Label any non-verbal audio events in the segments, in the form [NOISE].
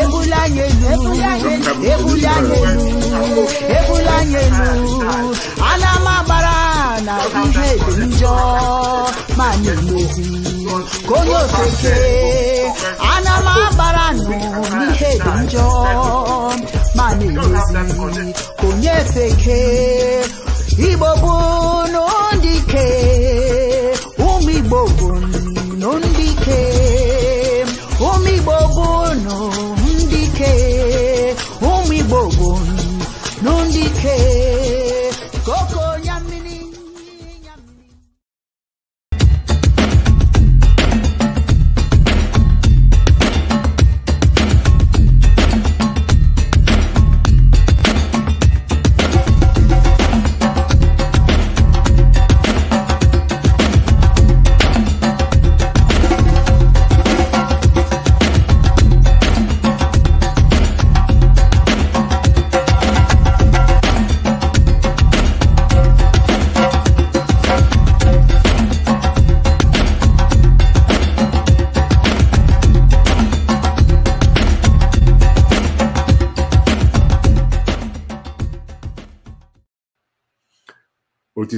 ebulanyelu ebulanyelu ebulanyelu ana m agbara na ihe dị njọ ma na-emezi ka ana m agbara nụ n'ihe dị njọ ma na-emezi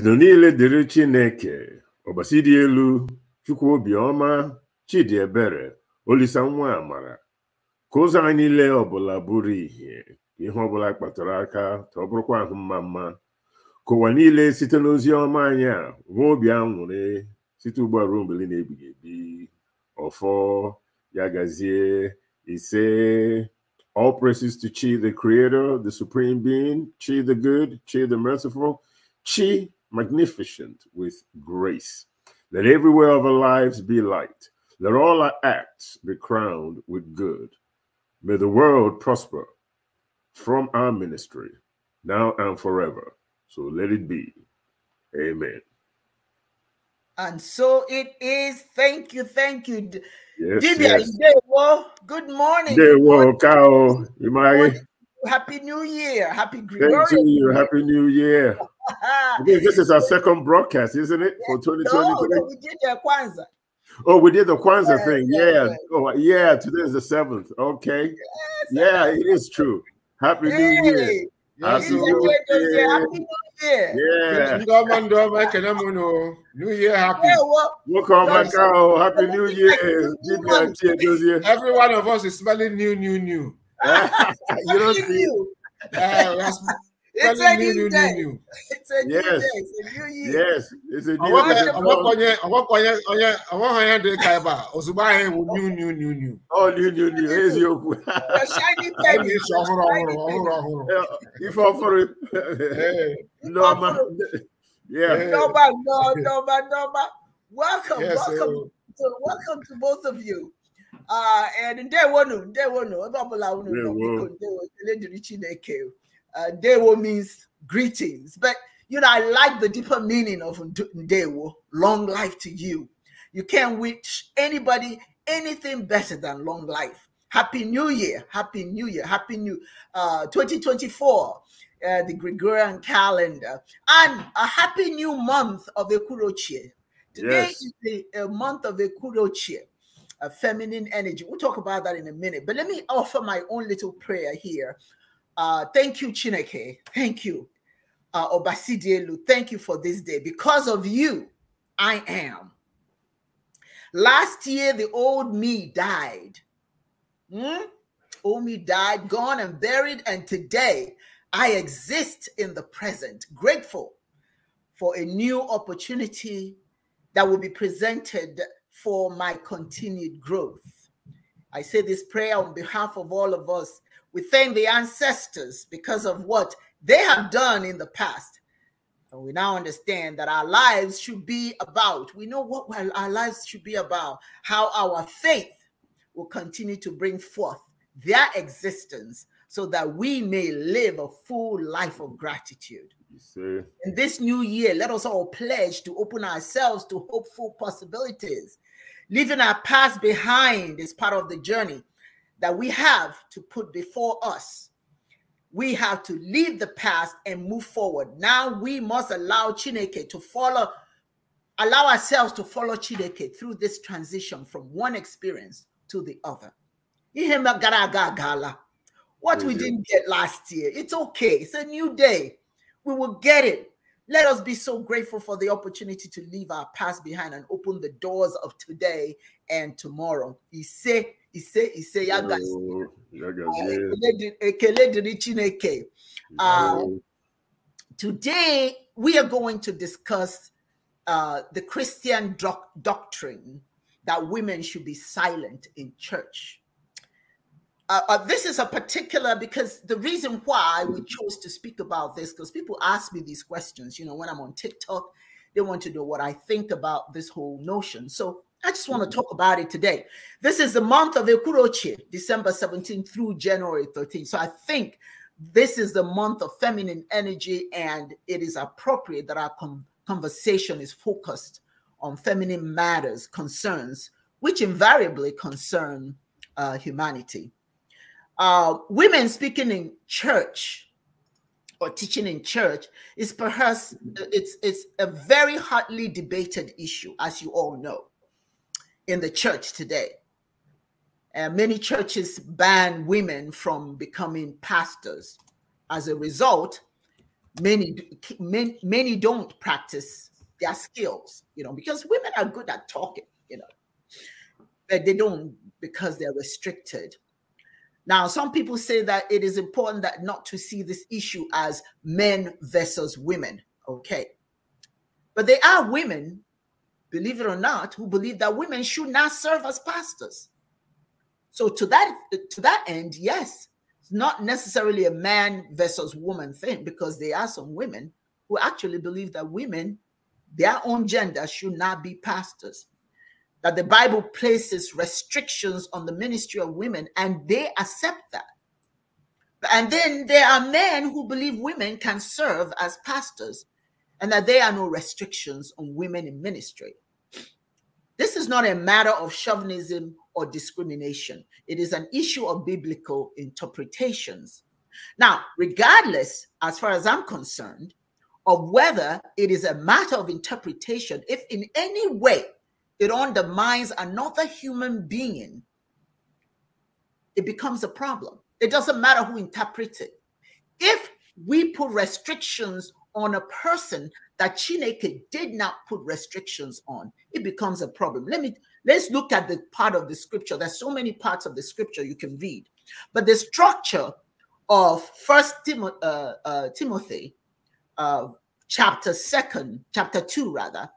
otuto niile dịrị chineke ọgbasi dị elu chukwu obiọma chidi ebere olisa nwa amara ka ụzọ anyị niile ọbụla bụrụ ihe ihe ọbụla kpatara aka ka ọ bụrụkwa ahụ mma mma ka ụwa niile site n'ozi ọma anyị a nwee obi aṅụrị site ugbu a ruo mgbe na-ebighị ebi ọfọ ya gazie ise all praises to chi the creator the supreme being chi the good chi the merciful chi magnificent with grace. Let everywhere of our lives be light. Let all our acts be crowned with good. May the world prosper from our ministry, now and forever. So let it be. Amen. And so it is. Thank you. Thank you. Yes, yes. Good morning. Good morning. Good morning. Happy New Year. Happy Gregorious Thank you. Happy New Year. Okay, [LAUGHS] this is our second broadcast, isn't it? For 2023. No, we did the Kwanzaa. Oh, we did the Kwanzaa yeah, thing. Yeah. yeah. Oh, yeah. Today is the seventh. Okay. Yes, yeah, it is true. Happy hey. New Year. Absolutely. Happy New Year. Yeah. Oh. New Year happy. Welcome back out. Oh, happy New Year. Every one of us is smelling new, new, new. [LAUGHS] you don't see. You. Uh, [LAUGHS] it's a new, new day. New, new. It's a yes. new day. It's a new year. Yes, it's a new day. ọwọ́ kan yẹn dé ka ẹ bá òṣùpá yẹn wò new new new new. ọ oh, new new new ezi okwu. ẹni sọ ọhụrụ ọhụrụ ọhụrụ ọhụrụ. ife ọfụrụ nneọma. Nneọma nnọọ nneọma nneọma. Welcome, yes, welcome, so. to, welcome to both of you. And ah, eh, ndewonu ebe ọbụla unu nọ biko ndewo ndewo ah, means greetings but you know i like the deeper meaning of ndewo long life to you you can't wish anybody anything better than long life happy new year happy new year happy new uh, ah, 2024 uh, eh, the Gregorian calendar, and a happy new month of Ekurochie. Today yes. is the uh, month of Ekurochie uh, feminine energy. We'll talk about that in a minute. But let me offer my own little prayer here. Uh, thank you, Chineke. Thank you, uh, Obasidielu. Thank you for this day. Because of you, I am. Last year, the old me died. Hmm? Old me died, gone and buried. And today, I exist in the present, grateful for a new opportunity that will be presented for my continued growth. I say this prayer on behalf of all of us. We thank the ancestors because of what they have done in the past. And we now understand that our lives should be about, we know what our lives should be about, how our faith will continue to bring forth their existence so that we may live a full life of gratitude. In this new year, let us all pledge to open ourselves to hopeful possibilities Leaving our past behind is part of the journey that we have to put before us. We have to leave the past and move forward. Now we must allow Chineke to follow, allow ourselves to follow Chineke through this transition from one experience to the other. What we didn't get last year, it's okay. It's a new day. We will get it. Let us be so grateful for the opportunity to leave our past behind and open the doors of today and tomorrow. Ise, ise, ise, yagas, guys. Eh, ah, today, we are going to discuss uh, the Christian doc doctrine that women should be silent in church uh, uh, this is a particular because the reason why we chose to speak about this because people ask me these questions you know when i'm on tiktok they want to know what i think about this whole notion so i just want to mm-hmm. talk about it today this is the month of ekuroche december 17th through january 13th so i think this is the month of feminine energy and it is appropriate that our conversation is focused on feminine matters concerns which invariably concern uh, humanity uh, women speaking in church or teaching in church is perhaps it's it's a very hotly debated issue, as you all know, in the church today. Uh, many churches ban women from becoming pastors. As a result, many, many many don't practice their skills, you know, because women are good at talking, you know, but they don't because they're restricted now, some people say that it is important that not to see this issue as men versus women. Okay. But there are women, believe it or not, who believe that women should not serve as pastors. So to that to that end, yes, it's not necessarily a man versus woman thing because there are some women who actually believe that women, their own gender, should not be pastors that the Bible places restrictions on the ministry of women, and they accept that. And then there are men who believe women can serve as pastors and that there are no restrictions on women in ministry. This is not a matter of chauvinism or discrimination, it is an issue of biblical interpretations. Now, regardless, as far as I'm concerned, of whether it is a matter of interpretation, if in any way it undermines another human being, it becomes a problem. It doesn't matter who interprets it. If we put restrictions on a person that Chineke did not put restrictions on, it becomes a problem. Let me let's look at the part of the scripture. There's so many parts of the scripture you can read, but the structure of First Timo, uh, uh, Timothy, uh, chapter second, chapter two rather,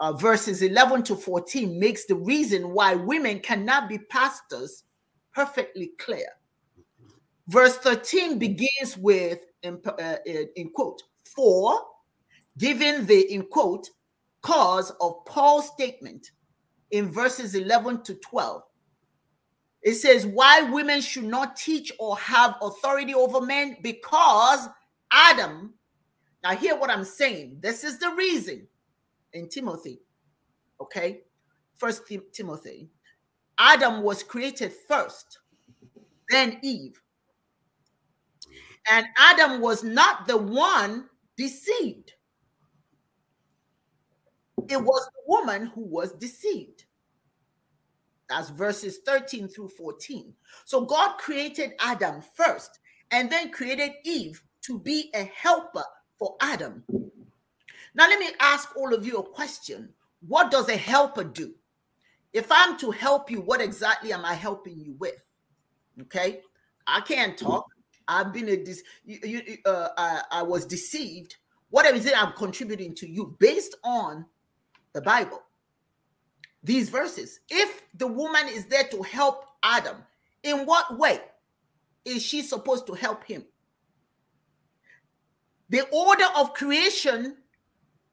uh, verses 11 to 14 makes the reason why women cannot be pastors perfectly clear. Verse 13 begins with, in, uh, in quote, for, given the, in quote, cause of Paul's statement in verses 11 to 12. It says, Why women should not teach or have authority over men? Because Adam, now hear what I'm saying. This is the reason in Timothy. Okay, First Tim Timothy. Adam was created first, then Eve. And Adam was not the one deceived. It was the woman who was deceived. That's verses 13 through 14. So God created Adam first and then created Eve to be a helper for Adam. Now, let me ask all of you a question What does a helper do? If I'm to help you, what exactly am I helping you with? Okay, I can't talk. I've been a dis- you, you, uh, I, I was deceived. What is it I'm contributing to you based on the Bible? These verses. If the woman is there to help Adam, in what way is she supposed to help him? The order of creation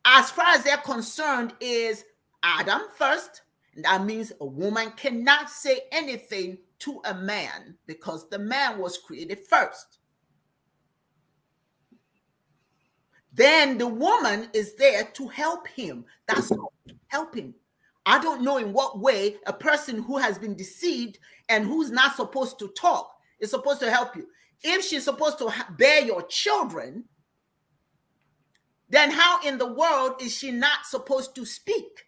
as far as they're concerned, is Adam first. That means a woman cannot say anything to a man because the man was created first. Then the woman is there to help him. That's helping. I don't know in what way a person who has been deceived and who's not supposed to talk is supposed to help you. If she's supposed to bear your children, then how in the world is she not supposed to speak?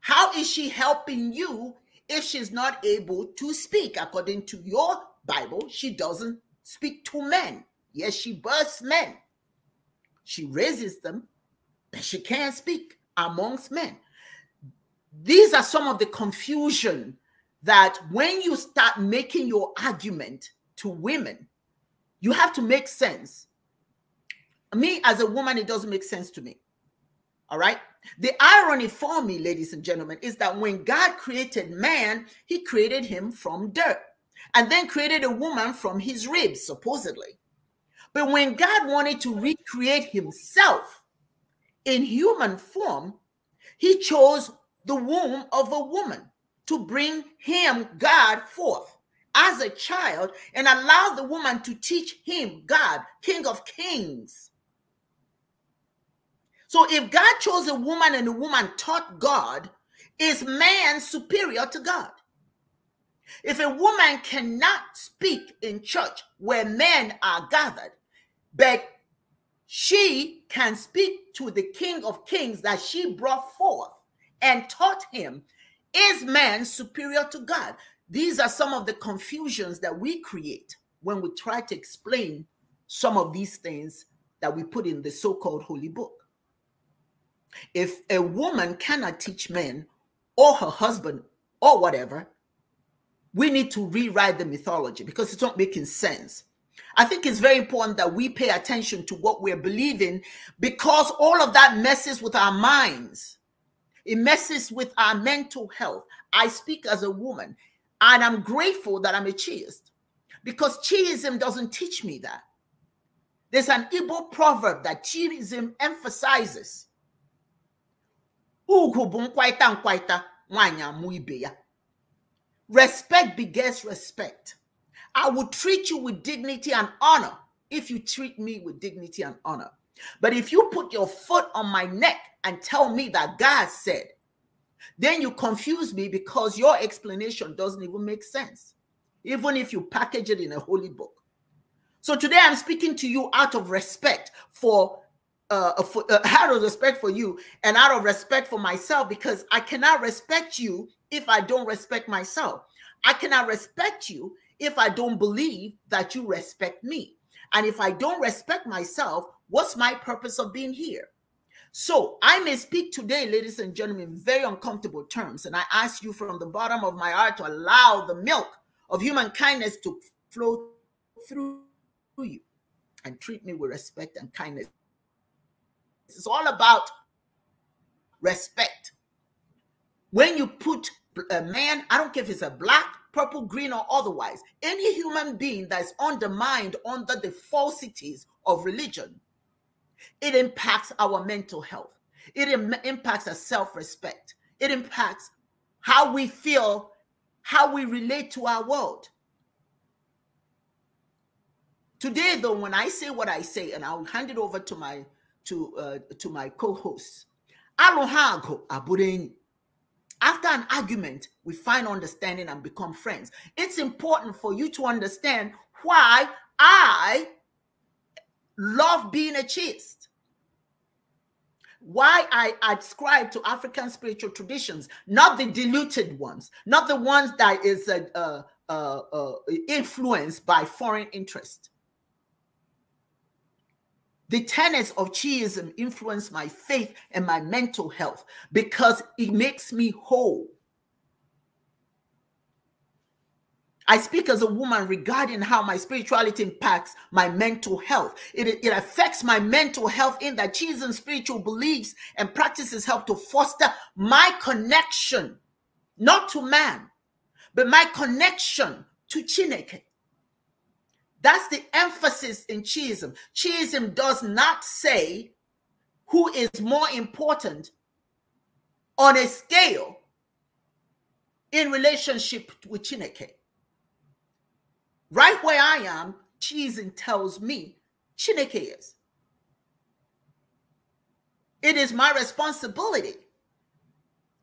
How is she helping you if she's not able to speak? According to your Bible, she doesn't speak to men. Yes, she births men. She raises them, but she can't speak amongst men. These are some of the confusion that when you start making your argument to women, you have to make sense me as a woman, it doesn't make sense to me. All right. The irony for me, ladies and gentlemen, is that when God created man, he created him from dirt and then created a woman from his ribs, supposedly. But when God wanted to recreate himself in human form, he chose the womb of a woman to bring him, God, forth as a child and allow the woman to teach him, God, King of Kings, so if God chose a woman and the woman taught God, is man superior to God? If a woman cannot speak in church where men are gathered, but she can speak to the King of Kings that she brought forth and taught him, is man superior to God? These are some of the confusions that we create when we try to explain some of these things that we put in the so called holy book. If a woman cannot teach men or her husband or whatever, we need to rewrite the mythology because it's not making sense. I think it's very important that we pay attention to what we're believing because all of that messes with our minds. It messes with our mental health. I speak as a woman, and I'm grateful that I'm a chiist because chiism doesn't teach me that. There's an Igbo proverb that chiism emphasizes ugwu bụ nkwaịta nkwaịta nwanyị amụ ibe ya respect begets respect i will treat you with dignity and honor if you treat me with dignity and honor but if you put your foot on my neck and tell me that god said then you confuse me because your explanation doesn't even make sense even if you package it in a holy book so today I'm speaking to you out of respect for uh, out uh, of respect for you and out of respect for myself because I cannot respect you if I don't respect myself. I cannot respect you if I don't believe that you respect me. And if I don't respect myself, what's my purpose of being here? So I may speak today, ladies and gentlemen, very uncomfortable terms. And I ask you from the bottom of my heart to allow the milk of human kindness to flow through you and treat me with respect and kindness it's all about respect. When you put a man, I don't care if it's a black, purple, green, or otherwise, any human being that is undermined under the falsities of religion, it impacts our mental health. It Im impacts our self respect. It impacts how we feel, how we relate to our world. Today, though, when I say what I say, and I'll hand it over to my to uh, to my co-hosts. Alohago aburenyi. After an argument, we find understanding and become friends. It's important for you to understand why I love being a chaste. Why I ascribe to African spiritual traditions, not the diluted ones, not the ones that is uh, uh, uh influenced by foreign interest. The tenets of Chiism influence my faith and my mental health because it makes me whole. I speak as a woman regarding how my spirituality impacts my mental health. It, it affects my mental health in that Chisholm spiritual beliefs and practices help to foster my connection, not to man, but my connection to Chineke. That's the emphasis in Chiism. Chiism does not say who is more important on a scale in relationship with Chineke. Right where I am, Chiism tells me Chineke is. It is my responsibility,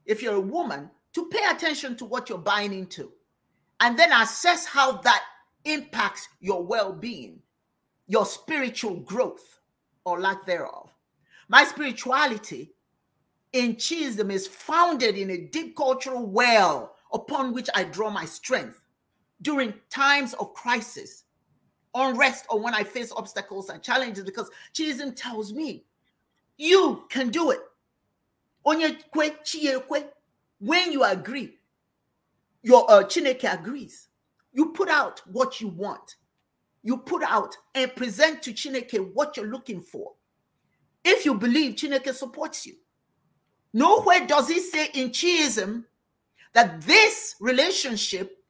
if you're a woman, to pay attention to what you're buying into and then assess how that impacts your well being, your spiritual growth, or lack thereof. My spirituality in Chisholm is founded in a deep cultural well upon which I draw my strength during times of crisis, unrest, or when I face obstacles and challenges, because Chisholm tells me, you can do it. When you agree, your uh, Chineke agrees. You put out what you want. You put out and present to Chineke what you're looking for. If you believe Chineke supports you. Nowhere does he say in Chiism that this relationship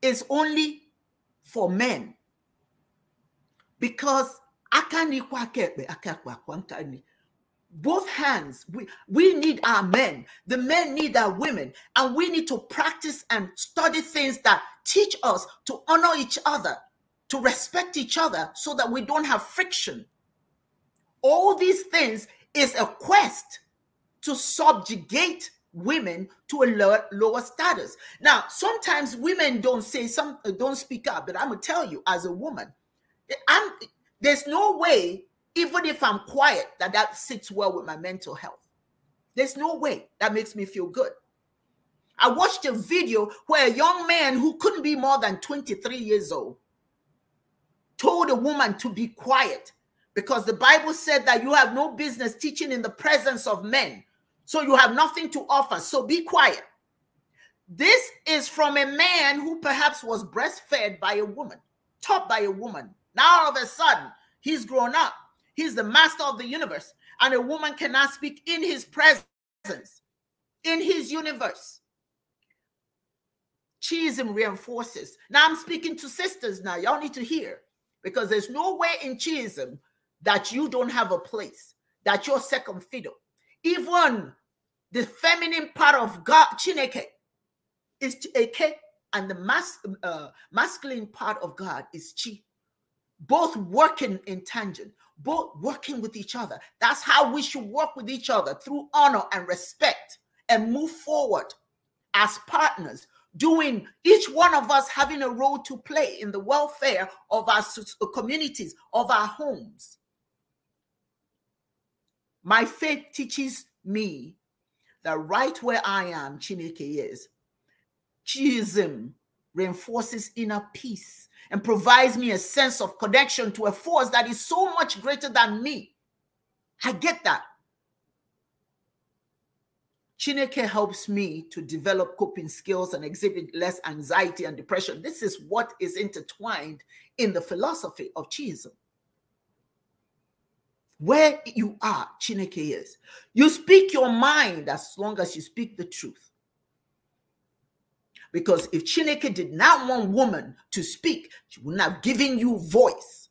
is only for men. Because I can't akakwa kwa nkani both hands we we need our men the men need our women and we need to practice and study things that teach us to honor each other to respect each other so that we don't have friction all these things is a quest to subjugate women to a lower, lower status now sometimes women don't say some don't speak up but i'm gonna tell you as a woman i'm there's no way even if I'm quiet, that that sits well with my mental health. There's no way that makes me feel good. I watched a video where a young man who couldn't be more than 23 years old told a woman to be quiet because the Bible said that you have no business teaching in the presence of men. So you have nothing to offer. So be quiet. This is from a man who perhaps was breastfed by a woman, taught by a woman. Now all of a sudden, he's grown up He's the master of the universe, and a woman cannot speak in his presence, in his universe. Chism reinforces. Now I'm speaking to sisters now. Y'all need to hear because there's nowhere in Chism that you don't have a place, that you're second fiddle. Even the feminine part of God, Chineke, is Chineke, and the mas- uh, masculine part of God is Chi, both working in tangent, both working with each other. That's how we should work with each other through honor and respect and move forward as partners, doing each one of us having a role to play in the welfare of our communities, of our homes. My faith teaches me that right where I am, Chinike is. Chism reinforces inner peace and provides me a sense of connection to a force that is so much greater than me. I get that. Chineke helps me to develop coping skills and exhibit less anxiety and depression. This is what is intertwined in the philosophy of Chism. Where you are, Chineke is. You speak your mind as long as you speak the truth. Because if Chineke did not want woman to speak, she would not have given you voice.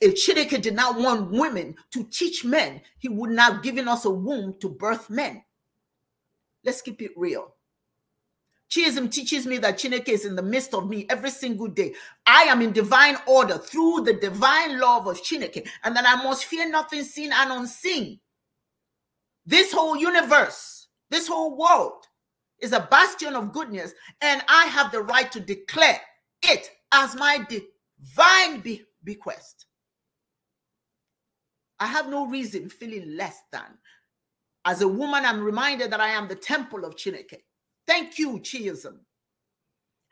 If Chineke did not want women to teach men, he would not have given us a womb to birth men. Let's keep it real. Chism teaches me that Chineke is in the midst of me every single day. I am in divine order through the divine love of Chineke, and that I must fear nothing seen and unseen. This whole universe, this whole world is a bastion of goodness, and I have the right to declare it as my divine be- bequest. I have no reason feeling less than. As a woman, I'm reminded that I am the temple of Chineke. Thank you, Chiism.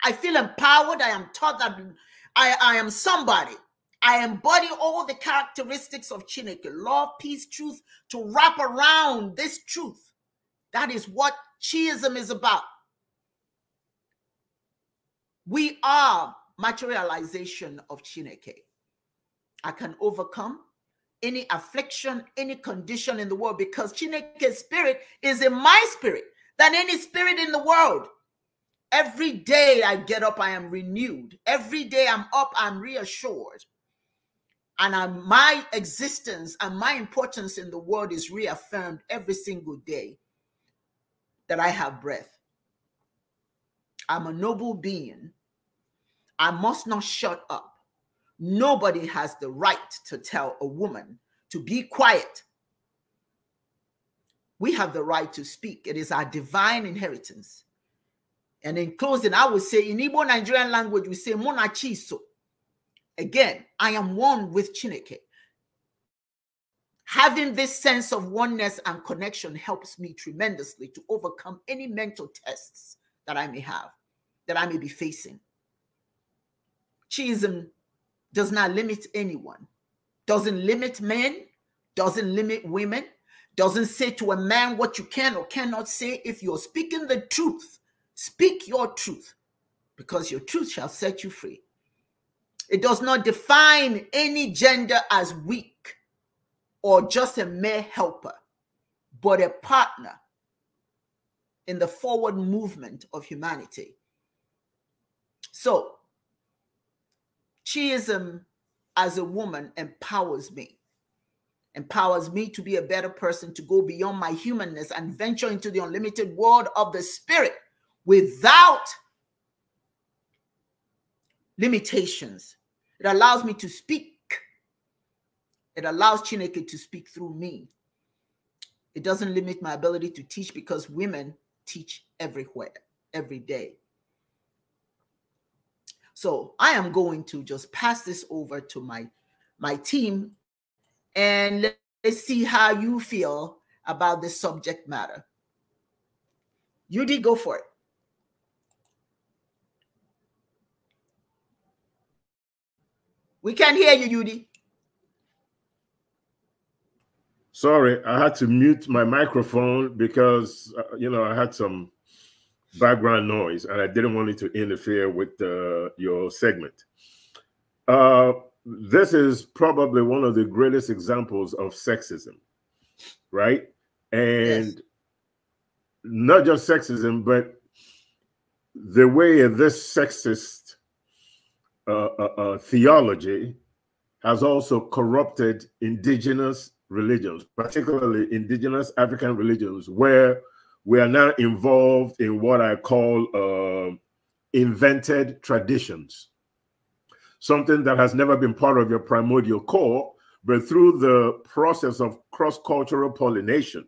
I feel empowered. I am taught that I, I am somebody. I embody all the characteristics of Chineke love, peace, truth to wrap around this truth. That is what Chiism is about. We are materialization of Chineke. I can overcome any affliction, any condition in the world because Chineke's spirit is in my spirit than any spirit in the world. Every day I get up, I am renewed. Every day I'm up, I'm reassured. And I'm, my existence and my importance in the world is reaffirmed every single day that I have breath. I'm a noble being. I must not shut up. Nobody has the right to tell a woman to be quiet. We have the right to speak, it is our divine inheritance. And in closing, I would say in Igbo Nigerian language, we say Monachiso. Again, I am one with Chineke. Having this sense of oneness and connection helps me tremendously to overcome any mental tests that I may have, that I may be facing. Chism does not limit anyone, doesn't limit men, doesn't limit women, doesn't say to a man what you can or cannot say. If you're speaking the truth, speak your truth, because your truth shall set you free. It does not define any gender as weak or just a mere helper, but a partner in the forward movement of humanity. So, Chiism as a woman empowers me, empowers me to be a better person, to go beyond my humanness and venture into the unlimited world of the spirit without limitations. It allows me to speak it allows Chineke to speak through me. It doesn't limit my ability to teach because women teach everywhere, every day. So I am going to just pass this over to my my team and let's see how you feel about this subject matter. You go for it. We can't hear you, Yudi. Sorry, I had to mute my microphone because uh, you know I had some background noise and I didn't want it to interfere with uh, your segment. Uh, this is probably one of the greatest examples of sexism, right? And yes. not just sexism, but the way this sexist uh, uh, uh, theology has also corrupted indigenous religions, particularly indigenous African religions, where we are now involved in what I call uh, invented traditions, something that has never been part of your primordial core, but through the process of cross-cultural pollination,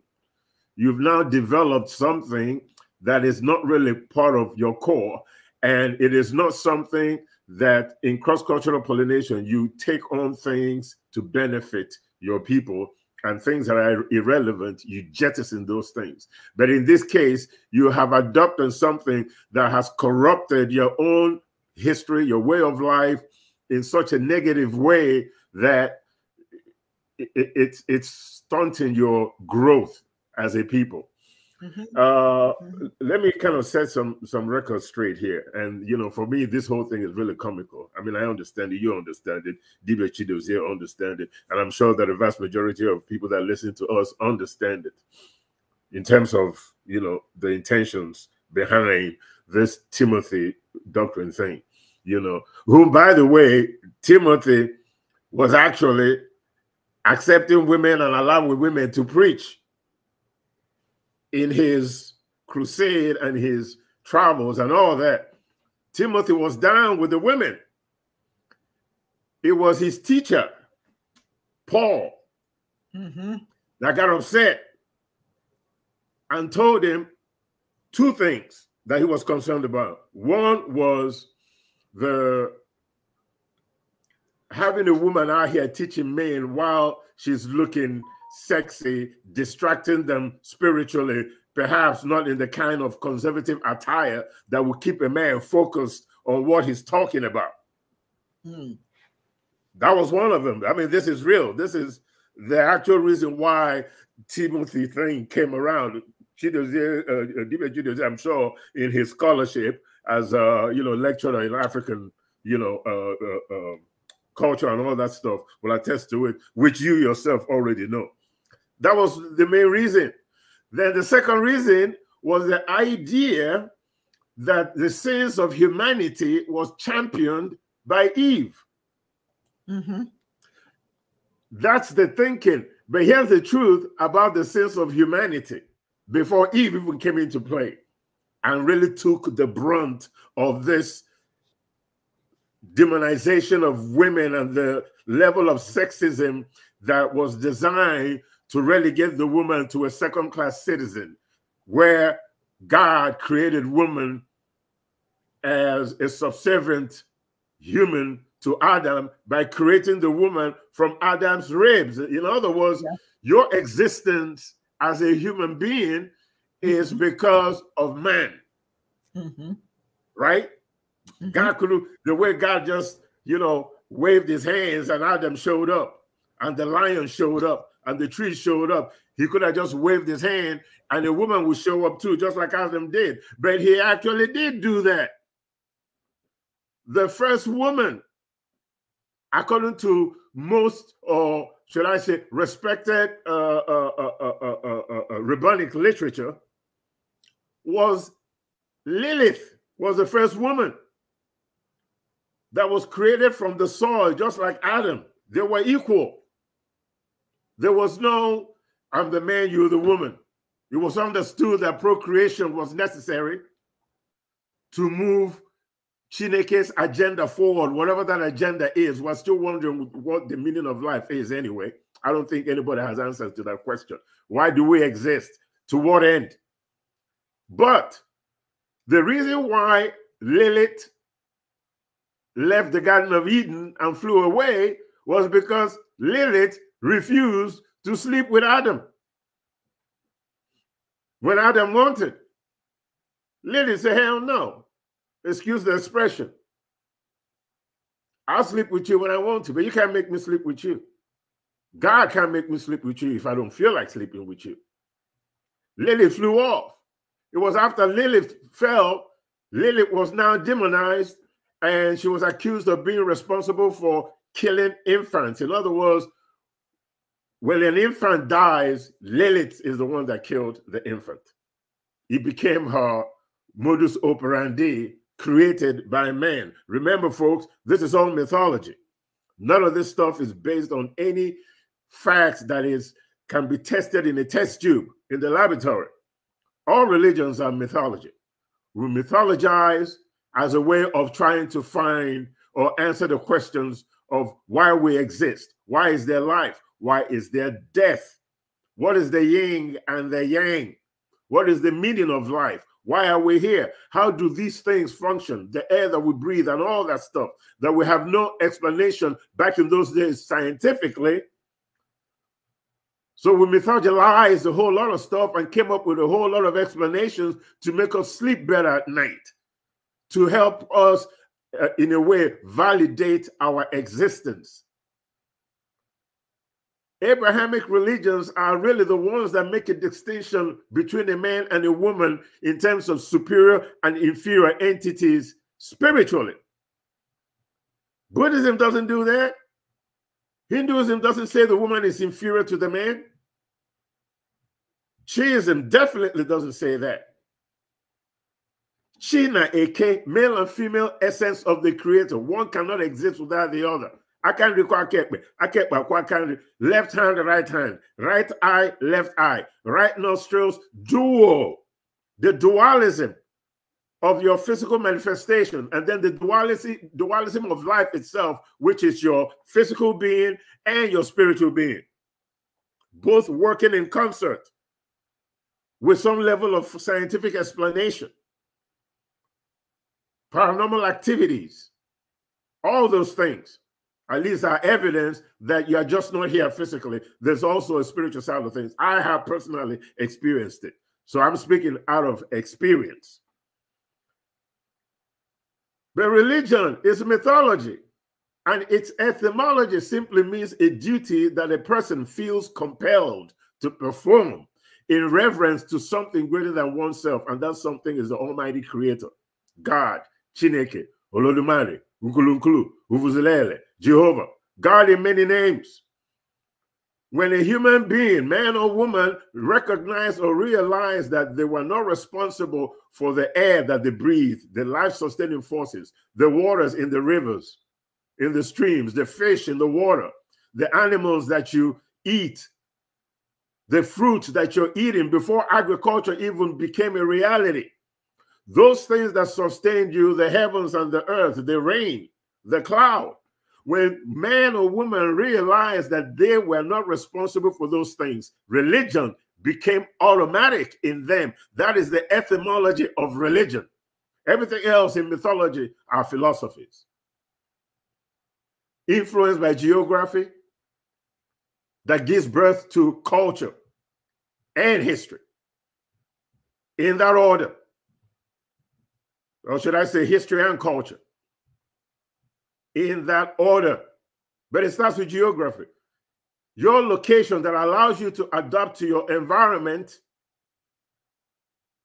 you've now developed something that is not really part of your core, and it is not something that in cross-cultural pollination you take on things to benefit your people and things that are irrelevant, you jettison those things. But in this case, you have adopted something that has corrupted your own history, your way of life in such a negative way that it, it, it's stunting your growth as a people. Mm-hmm. Uh, mm-hmm. Let me kind of set some some records straight here. And you know, for me, this whole thing is really comical. I mean, I understand it, you understand it, Dibe Chido's here understand it, and I'm sure that the vast majority of people that listen to us understand it in terms of you know the intentions behind this Timothy doctrine thing. You know, who by the way, Timothy was actually accepting women and allowing women to preach in his crusade and his travels and all that, Timothy was down with the women. It was his teacher, Paul, mm -hmm. that got upset and told him two things that he was concerned about. One was the having a woman out here teaching men while she's looking sexy, distracting them spiritually, perhaps not in the kind of conservative attire that will keep a man focused on what he's talking about. Hmm. That was one of them. I mean, this is real. This is the actual reason why Timothy Thane came around. Chidozie, uh, uh Dibia I'm sure, in his scholarship as a you know lecturer in African you know uh, uh, uh, culture and all that stuff will attest to it, which you yourself already know. That was the main reason. Then the second reason was the idea that the sins of humanity was championed by Eve. Mm -hmm. That's the thinking. But here's the truth about the sins of humanity before Eve even came into play and really took the brunt of this demonization of women and the level of sexism that was designed to relegate the woman to a second class citizen where God created woman as a subservient human to Adam by creating the woman from Adam's ribs. In other words, yeah. your existence as a human being is mm-hmm. because of man. Mm -hmm. Right? Mm -hmm. God could the way God just, you know, waved his hands and Adam showed up and the lion showed up and the tree showed up. He could have just waved his hand and the woman would show up too, just like Adam did. But he actually did do that. The first woman, according to most, or should I say, respected uh, uh, uh, rabbinic literature, was Lilith, was the first woman that was created from the soil, just like Adam. They were equal. There was no, I'm the man, you're the woman. It was understood that procreation was necessary to move Chineke's agenda forward, whatever that agenda is. We're still wondering what the meaning of life is anyway. I don't think anybody has answers to that question. Why do we exist? To what end? But the reason why Lilith left the Garden of Eden and flew away was because Lilith refused to sleep with Adam when Adam wanted. Lily said, Hell no. Excuse the expression. I'll sleep with you when I want to, but you can't make me sleep with you. God can't make me sleep with you if I don't feel like sleeping with you. Lily flew off. It was after Lily fell, Lily was now demonized and she was accused of being responsible for killing infants. In other words, when an infant dies, Lilith is the one that killed the infant. It became her modus operandi created by man. Remember, folks, this is all mythology. None of this stuff is based on any facts that is can be tested in a test tube in the laboratory. All religions are mythology. We mythologize as a way of trying to find or answer the questions of why we exist. Why is there life? Why is there death? What is the yin and the yang? What is the meaning of life? Why are we here? How do these things function? The air that we breathe and all that stuff that we have no explanation back in those days scientifically. So we mythologized a whole lot of stuff and came up with a whole lot of explanations to make us sleep better at night, to help us uh, in a way, validate our existence. Abrahamic religions are really the ones that make a distinction between a man and a woman in terms of superior and inferior entities spiritually. Buddhism doesn't do that. Hinduism doesn't say the woman is inferior to the man. Shiism definitely doesn't say that. Shina Eke, male and female essence of the creator. One cannot exist without the other. I can't require Akekwe. Akekwe, can left hand, right hand, right eye, left eye, right nostrils, dual. The dualism of your physical manifestation, and then the duality, dualism of life itself, which is your physical being and your spiritual being, both working in concert with some level of scientific explanation paranormal activities, all those things, at least are evidence that you're just not here physically. There's also a spiritual side of things. I have personally experienced it. So I'm speaking out of experience. But religion is mythology, and its etymology simply means a duty that a person feels compelled to perform in reverence to something greater than oneself, and that something is the Almighty Creator, God. Chineke, Olodumare, Ukulunkulu, Uvuzilele, Jehovah, God in many names. When a human being, man or woman, recognized or realized that they were not responsible for the air that they breathe, the life sustaining forces, the waters in the rivers, in the streams, the fish in the water, the animals that you eat, the fruit that you're eating before agriculture even became a reality. Those things that sustain you, the heavens and the earth, the rain, the cloud. When man or woman realized that they were not responsible for those things, religion became automatic in them. That is the etymology of religion. Everything else in mythology are philosophies. Influenced by geography that gives birth to culture and history in that order or should I say history and culture, in that order. But it starts with geography. Your location that allows you to adapt to your environment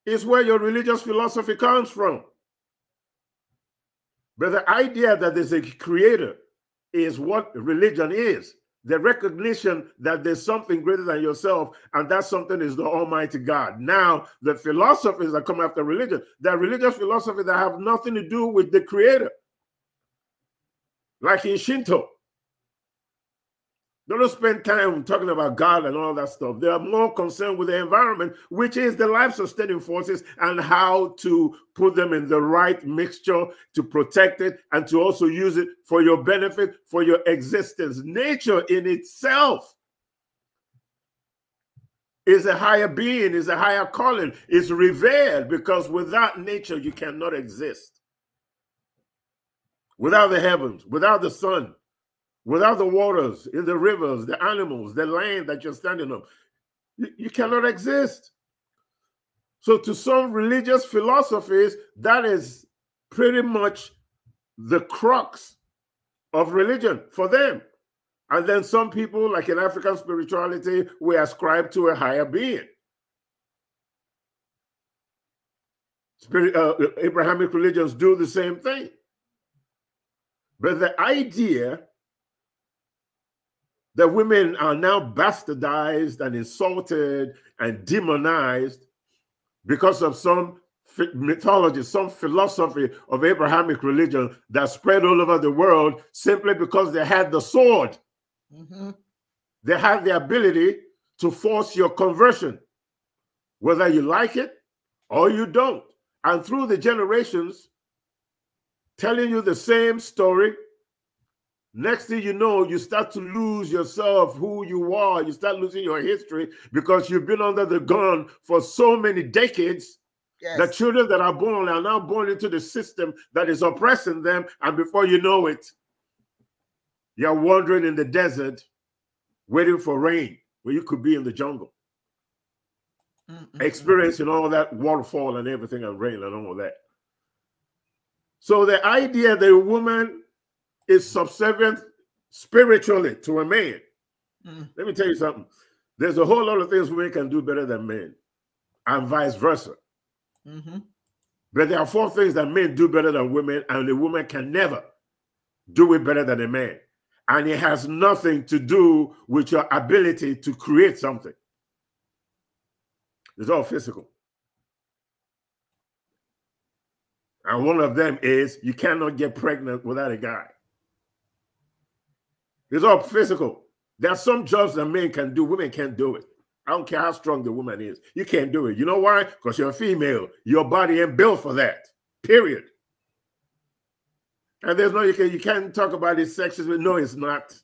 is where your religious philosophy comes from. But the idea that there's a creator is what religion is the recognition that there's something greater than yourself, and that something is the Almighty God. Now, the philosophies that come after religion, the religious philosophies that have nothing to do with the Creator, like in Shinto. They don't spend time talking about God and all that stuff. They are more concerned with the environment, which is the life sustaining forces and how to put them in the right mixture to protect it and to also use it for your benefit, for your existence. Nature in itself is a higher being, is a higher calling, is revered because without nature, you cannot exist. Without the heavens, without the sun, without the waters, in the rivers, the animals, the land that you're standing on. You, you, cannot exist. So, to some religious philosophies, that is pretty much the crux of religion for them. And then some people, like in African spirituality, we ascribe to a higher being. Spirit, uh, Abrahamic religions do the same thing. But the idea that women are now bastardized and insulted and demonized because of some mythology, some philosophy of Abrahamic religion that spread all over the world simply because they had the sword. Mm -hmm. They had the ability to force your conversion, whether you like it or you don't. And through the generations, telling you the same story Next thing you know, you start to lose yourself, who you are. You start losing your history because you've been under the gun for so many decades. Yes. The children that are born are now born into the system that is oppressing them. And before you know it, you're wandering in the desert waiting for rain where you could be in the jungle. Mm Experiencing all that waterfall and everything and rain and all that. So the idea that a woman is subservient spiritually to a man. Mm. Let me tell you something. There's a whole lot of things women can do better than men, and vice versa. Mm -hmm. But there are four things that men do better than women, and the woman can never do it better than a man. And it has nothing to do with your ability to create something. It's all physical. And one of them is you cannot get pregnant without a guy. It's all physical. There are some jobs that men can do, women can't do it. I don't care how strong the woman is. You can't do it. You know why? Because you're a female. Your body ain't built for that. Period. And there's no you can you can't talk about it. sexism. No, it's not.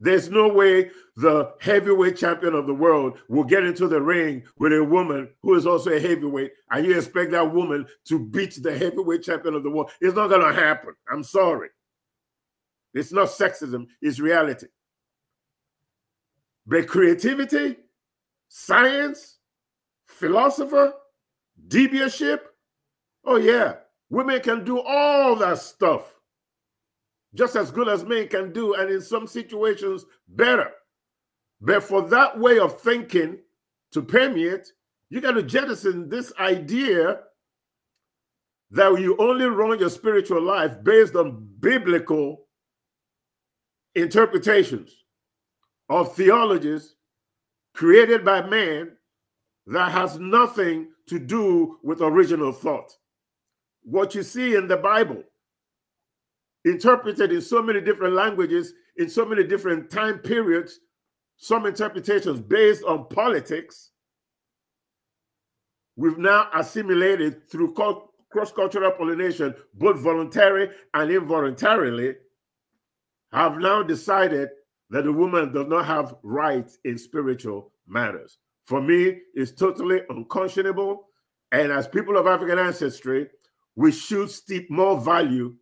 There's no way the heavyweight champion of the world will get into the ring with a woman who is also a heavyweight, and you expect that woman to beat the heavyweight champion of the world. It's not gonna happen. I'm sorry. It's not sexism, it's reality. But creativity, science, philosopher, deviantship, oh yeah, women can do all that stuff just as good as men can do, and in some situations, better. But for that way of thinking to permeate, you got to jettison this idea that you only run your spiritual life based on biblical interpretations of theologies created by man that has nothing to do with original thought. What you see in the Bible, interpreted in so many different languages, in so many different time periods, some interpretations based on politics, we've now assimilated through cross cultural pollination, both voluntary and involuntarily have now decided that the woman does not have rights in spiritual matters. For me, it's totally unconscionable. And as people of African ancestry, we should steep more value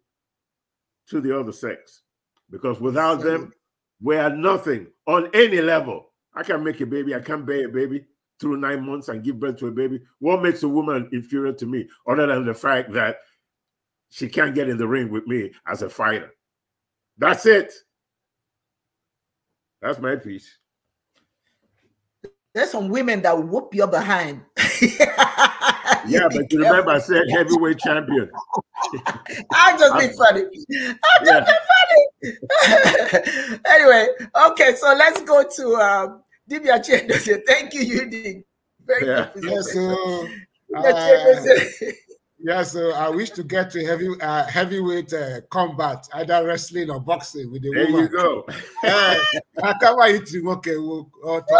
to the other sex because without them, we are nothing on any level. I can make a baby, I can bear a baby through nine months and give birth to a baby. What makes a woman inferior to me other than the fact that she can't get in the ring with me as a fighter? That's it. That's my piece. There's some women that whoop your behind. [LAUGHS] yeah, but you remember I said heavyweight champion. [LAUGHS] i will just be funny. i will just yeah. funny. [LAUGHS] anyway, okay, so let's go to um, Divya Chendose. Thank you, Yudi. Very yeah. good. Yes, uh, yeah, so I wish to get to heavy uh, heavyweight uh, combat, either wrestling or boxing with the there woman. There you go. [LAUGHS] Eh, I can't wait to okay, we'll, [LAUGHS] But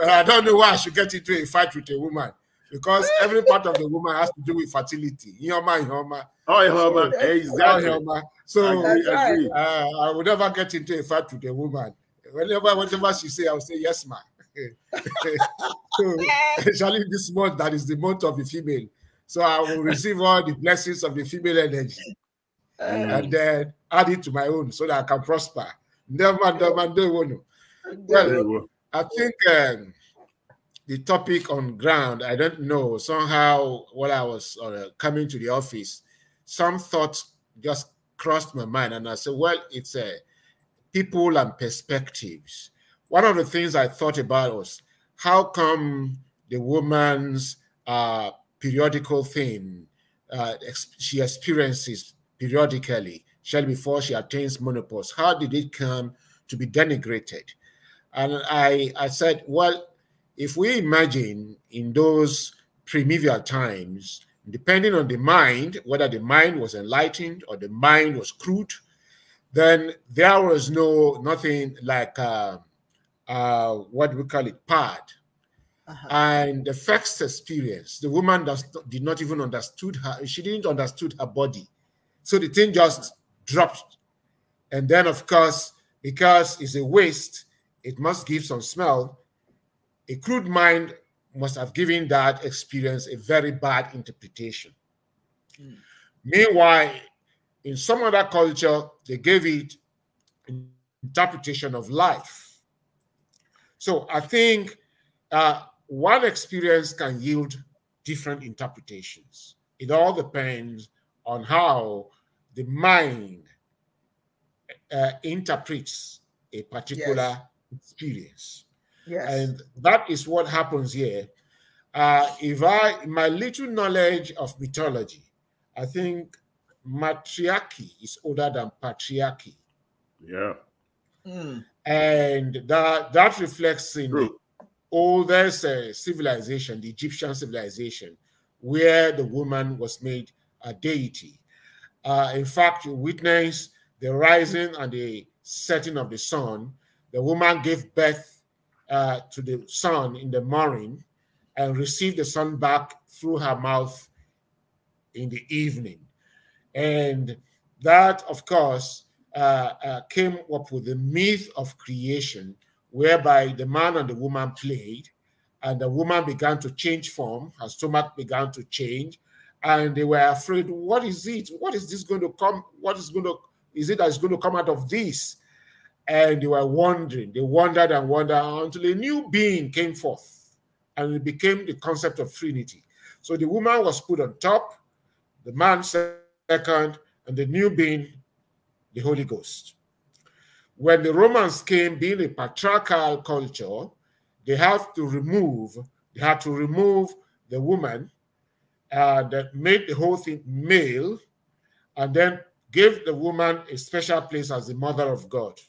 I don't know why I should get into a fight with a woman because every part of the woman has to do with fertility. Yoma, yoma. Oh, yoma. So, oh, exactly. Oh, yoma. So I, uh, I would never get into a fight with a woman. Whenever, whatever she say, I'll say yes, ma'am so, [LAUGHS] especially this month that is the month of the female. So I will receive all the blessings of the female energy um, and then add it to my own so that I can prosper. Never, never, never. Well, I think um, the topic on ground, I don't know, somehow while I was uh, coming to the office, some thoughts just crossed my mind. And I said, well, it's uh, people and perspectives one of the things I thought about was how come the woman's uh, periodical thing uh, ex she experiences periodically, shall before she attains menopause, how did it come to be denigrated? And I, I said, well, if we imagine in those primeval times, depending on the mind, whether the mind was enlightened or the mind was crude, then there was no nothing like uh, uh, what we call it, PAD. Uh -huh. And the first experience, the woman does, did not even understood her. She didn't understood her body. So the thing just dropped. And then, of course, because it's a waste, it must give some smell. A crude mind must have given that experience a very bad interpretation. Mm. Meanwhile, in some other culture, they gave it interpretation of life so I think uh, one experience can yield different interpretations. It all depends on how the mind uh, interprets a particular yes. experience. Yes. And that is what happens here. Uh, if I, my little knowledge of mythology, I think matriarchy is older than patriarchy. Yeah. Mm and that that reflects in True. the oldest uh, civilization, the Egyptian civilization, where the woman was made a deity. Uh, in fact, you witness the rising and the setting of the sun. The woman gave birth uh, to the sun in the morning and received the sun back through her mouth in the evening. And that, of course, uh, uh, came up with the myth of creation, whereby the man and the woman played, and the woman began to change form, her stomach began to change, and they were afraid, what is it? What is this going to come? What is going to is it that's going to come out of this? And they were wondering, they wondered and wondered until a new being came forth, and it became the concept of Trinity. So the woman was put on top, the man second, and the new being the Holy Ghost. When the Romans came, being a patriarchal culture, they have to remove, they had to remove the woman that made the whole thing male and then gave the woman a special place as the mother of God.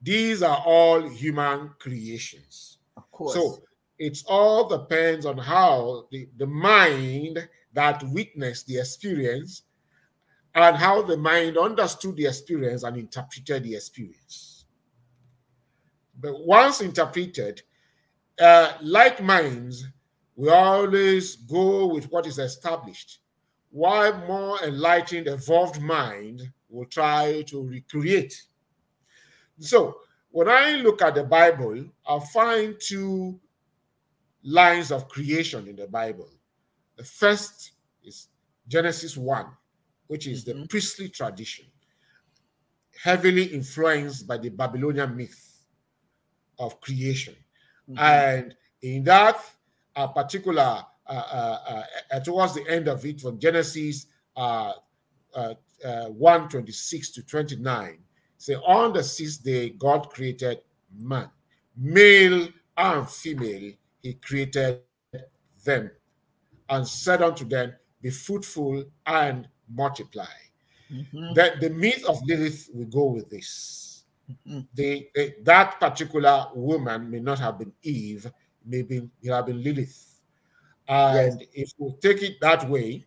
These are all human creations. Of course. So it all depends on how the, the mind that witnessed the experience and how the mind understood the experience and interpreted the experience. But once interpreted, uh, like minds, we always go with what is established, while more enlightened, evolved mind will try to recreate. So, when I look at the Bible, I find two lines of creation in the Bible. The first is Genesis 1, which is mm -hmm. the mm-hmm. priestly tradition, heavily influenced by the Babylonian myth of creation. Mm -hmm. And in that a particular, uh uh, uh, uh, towards the end of it, from Genesis uh, one twenty six to 29, say, On the sixth day, God created man, male and female, he created them, and said unto them, Be fruitful and multiply. Mm-hmm. That the myth of Lilith will go with this. Mm-hmm. The, the, that particular woman may not have been Eve, maybe it have been Lilith. And yes. if we take it that way,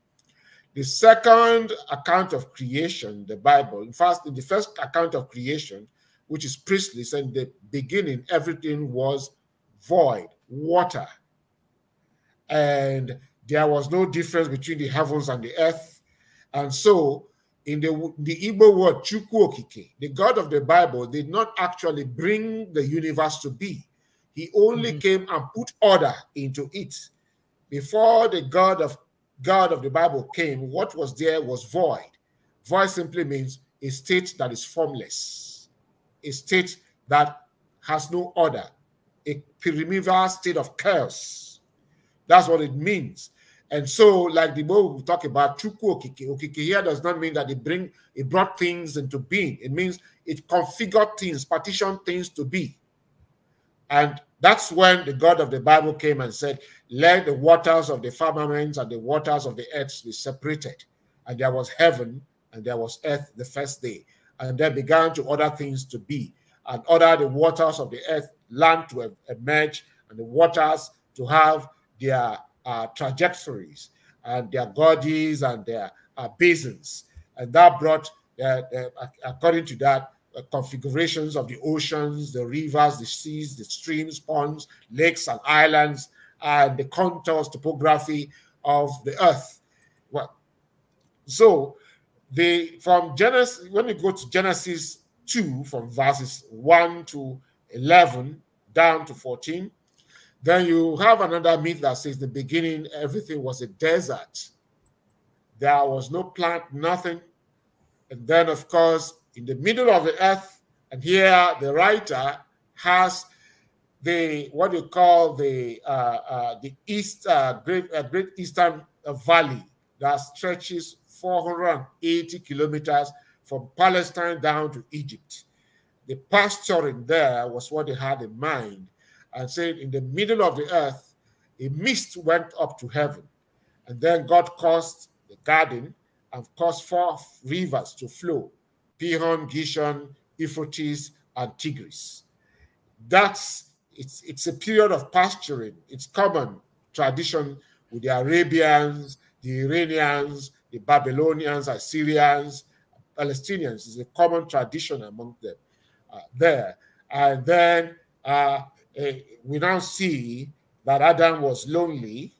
the second account of creation, the Bible, in fact, in the first account of creation, which is Priestly, and the beginning, everything was void, water. And there was no difference between the heavens and the earth and so, in the, the Igbo word Chukwokike, the God of the Bible did not actually bring the universe to be. He only mm -hmm. came and put order into it. Before the God of God of the Bible came, what was there was void. Void simply means a state that is formless, a state that has no order, a primeval state of chaos. That's what it means. And so, like the word we talk about Chukwu here does not mean that it bring it brought things into being. It means it configured things, partitioned things to be. And that's when the God of the Bible came and said, Let the waters of the and the waters of the earth be separated. And there was heaven and there was earth the first day. And began to order things to be, and order the waters of the earth, land to emerge, and the waters to have their uh, trajectories and their gorges and their uh, basins. And that brought, uh, uh according to that, uh, configurations of the oceans, the rivers, the seas, the streams, ponds, lakes, and islands, and the contours, topography of the earth. Well, so they from Genesis, when you go to Genesis 2, from verses 1 to 11 down to 14, then you have another myth that says the beginning, everything was a desert. There was no plant, nothing. And then, of course, in the middle of the earth, and here the writer has the what you call the uh, uh, the east uh, great uh, great eastern valley that stretches 480 kilometers from Palestine down to Egypt. The pasturing there was what they had in mind and said, In the middle of the earth, a mist went up to heaven. And then God caused the garden and caused four rivers to flow Pihon, Gishon, Euphrates, and Tigris. That's it's, it's a period of pasturing. It's common tradition with the Arabians, the Iranians, the Babylonians, Assyrians, Palestinians. It's a common tradition among them uh, there. And then uh, uh, we now see that Adam was lonely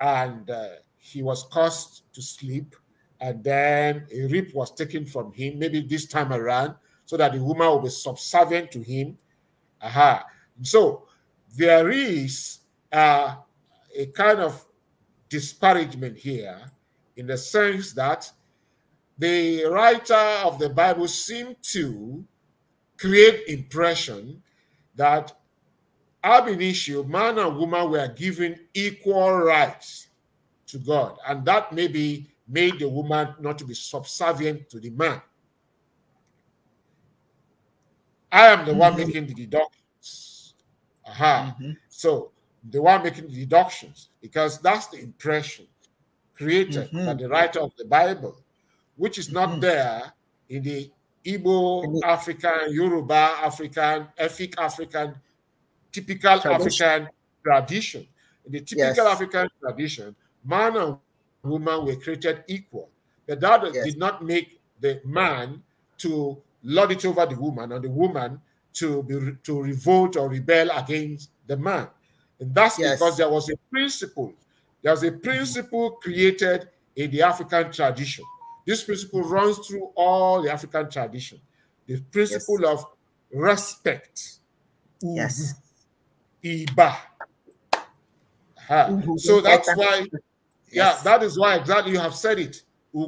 and uh, he was caused to sleep, and then a rib was taken from him, maybe this time around, so that the woman will be subservient to him. Aha. So there is uh, a kind of disparagement here in the sense that the writer of the Bible seemed to create impression that ab initio, man and woman were given equal rights to God, and that maybe made the woman not to be subservient to the man. I am the mm -hmm. one mm-hmm. making the deductions. Aha. Mm -hmm. So the one making the deductions, because that's the impression created mm -hmm. by mm-hmm. the writer of the Bible, which is not mm-hmm. there in the Igbo, African, Yoruba, African, Efik African typical tradition. African tradition. In the typical yes. African tradition, man and woman were created equal. But that yes. did not make the man to lord it over the woman and the woman to be to revolt or rebel against the man. And that's yes. because there was a principle. There was a principle created in the African tradition. This principle runs through all the African tradition. The principle yes. of respect. Yes. Iba. So that's why, yeah, that is why exactly you have said it. So,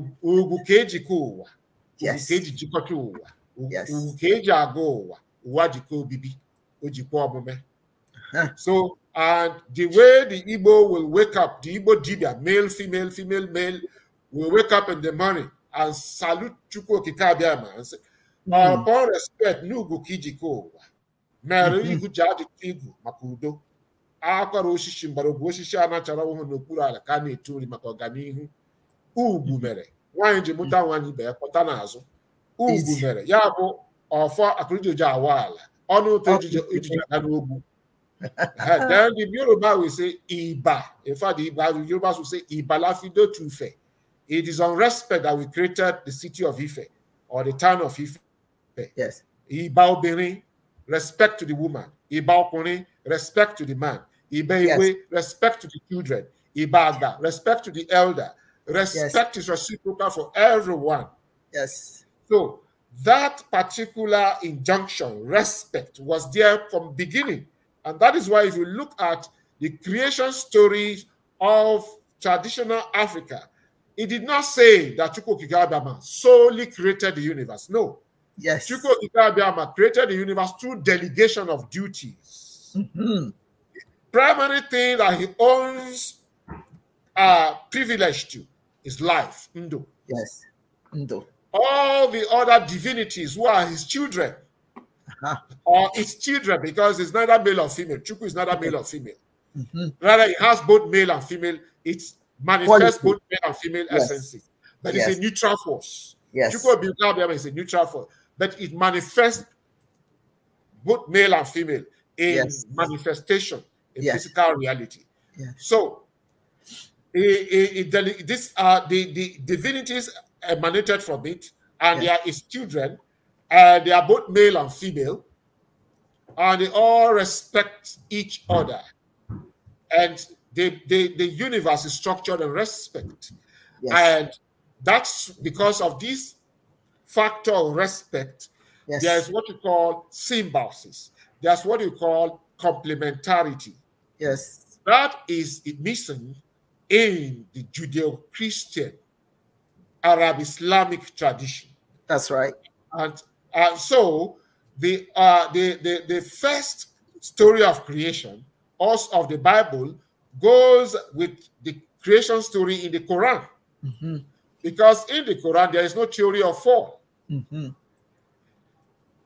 and the way the Igbo will wake up, the Igbo dibia, male, female, female, male, will wake up in the morning and salute Chukwu Kikabiyama and say, mm. upon respect, Nugu Kijiko, narị mhm. ihu ji ajụta igwu maka udo akwara osisi mgbọrọgwụ osisi a nachara ọhụrụ n'okpuru ala ka a na-etu nri maka ọganihu ugwu mhm. mere nwaanyị ji mụta nwaanyị mhm. ibe ya pụta n'azụ ugwu mere ya bụ ọfọ akụrụjụjụ awa ala ọnụ ụtọ ejije aga n'ogwu then the Yoruba will say iba in fact the Yoruba will say ibalafido to Ife it is on respect that we created the city of Ife or the town of Ife yes iba obìnrin respect to the woman. Iba respect to the man. Iba yes. respect to the children. ibaga. respect to the elder. Respect yes. is reciprocal for everyone. Yes. So that particular injunction, respect, was there from beginning. And that is why if you look at the creation stories of traditional Africa, it did not say that Chukwokigabama solely created the universe. No. Yes. Chico Dugabiyama created the universe through delegation of duties. Mm-hmm. Primary thing that he owns uh privilege to is life, Ndo. Yes. Ndo. All the other divinities who are his children uh-huh. or its children, because it's neither male or female. Chuku is neither male or female. Mm-hmm. Rather, it has both male and female. It manifests both male and female yes. essences. But yes. it's a neutral force. Yes. Chuku Abiyama is a neutral force but it manifests both male and female in yes. manifestation, in yes. physical reality. Yes. So, it, it, this uh, the, the divinities emanated from it, and there is children, and they are both male and female, and they all respect each other. And the, the, the universe is structured and respect. And that's because of these factor of respect. Yes. There is what you call symbiosis. There's what you call complementarity. Yes. That is missing in the Judeo-Christian Arab Islamic tradition. That's right. And and so the, uh, the, the, the first story of creation, us of the Bible, goes with the creation story in the Quran. Mm -hmm. Because in the Quran, there is no theory of fall. Mm -hmm.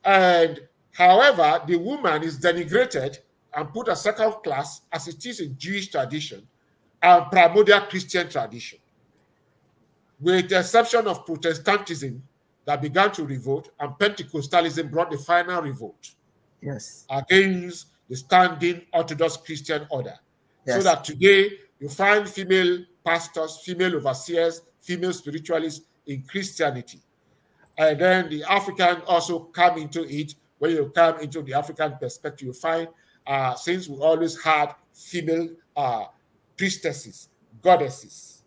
And however, the woman is denigrated and put a second class as it is in Jewish tradition and primordial Christian tradition, with the exception of Protestantism that began to revolt and Pentecostalism brought the final revolt. Yes. Against the standing Orthodox Christian order. Yes. So that today you find female pastors, female overseers, female spiritualists in Christianity. And then the African also come into it. When you come into the African perspective, you find uh, since we always had female uh, priestesses, goddesses.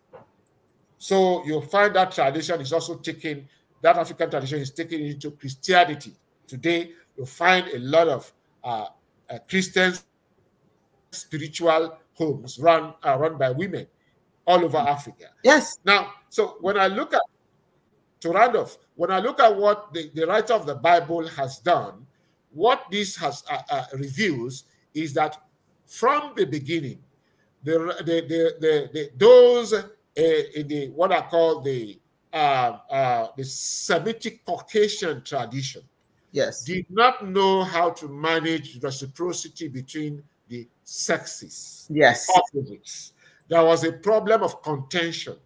So you find that tradition is also taken, that African tradition is taken into Christianity. Today, you find a lot of uh, uh Christian spiritual homes run, uh, run by women all over Africa. Yes. Now, so when I look at to round off, when I look at what the, the writer of the Bible has done, what this has uh, uh, reveals is that from the beginning, the, the, the, the, the those uh, in the what I call the um, uh, the Semitic Caucasian tradition, yes, did not know how to manage reciprocity between the sexes, yes, opposites. There was a problem of contention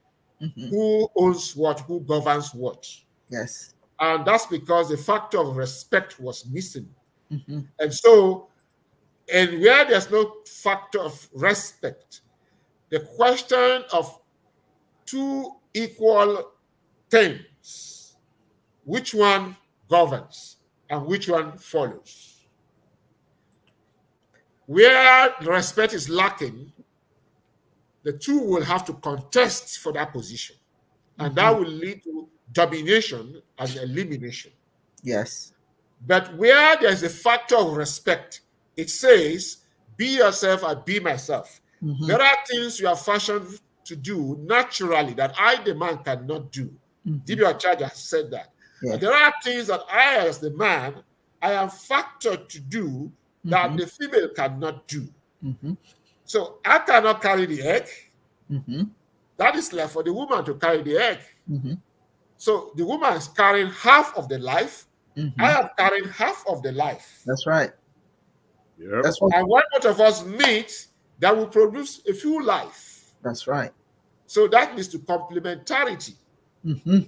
Mm-hmm. Who owns what? Who governs what? Yes. And that's because the factor of respect was missing. Mm-hmm. And so, and where there's no factor of respect, the question of two equal things, which one governs and which one follows? Where respect is lacking, the two will have to contest for that position. And mm -hmm. that mm-hmm. will lead to domination and elimination. Yes. But where there's a factor of respect, it says, be yourself, I be myself. Mm -hmm. There are things you are fashioned to do naturally that I, the man, cannot do. Mm-hmm. Charger said that. There are things that I, as the man, I am factored to do that mm -hmm. the female cannot do. Mm-hmm. So I cannot carry the egg. Mm-hmm. That is left for the woman to carry the egg. Mm-hmm. So the woman is carrying half of the life. Mm-hmm. I am carrying half of the life. That's right. Yep. That's what. And one of us meet that will produce a few life. That's right. So that means to complementarity. Mm-hmm.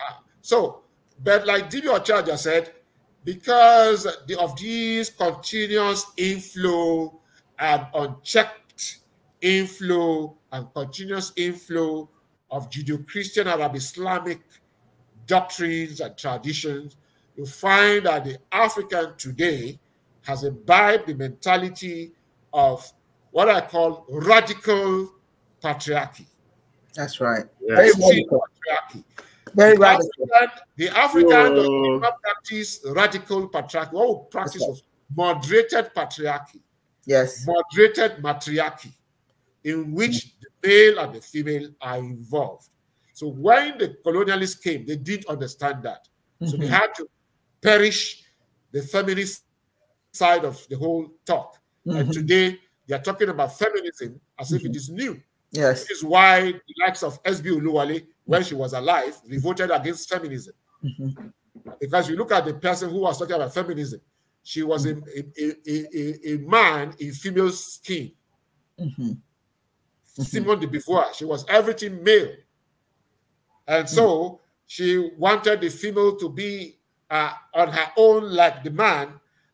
Ah. so, but like Dibio Charger said, because the, of these continuous inflow and unchecked inflow and continuous inflow of Judeo-Christian Arab Islamic doctrines and traditions, you find that the African today has imbibed the mentality of what I call radical patriarchy. That's right. Yes. Very radical. Patriarchy. Very the radical. African, the African does not practice radical patriarchy. What we practice was moderated patriarchy. Yes. Moderated matriarchy in which the male and the female are involved. So when the colonialists came, they didn't understand that. Mm -hmm. So they mm-hmm. had to perish the feminist side of the whole talk. Mm -hmm. And mm-hmm. today they are talking about feminism as if it mm-hmm. is new. Yes. This is why the likes of S.B. Uluwale, when she was alive, revolted against feminism. Because you look at the person who was talking about feminism, she was a, a, a, a, man in female skin. Mm -hmm. [LAUGHS] Simone de Beauvoir. She was everything male. And so hmm. she wanted the female to be uh, on her own like the man.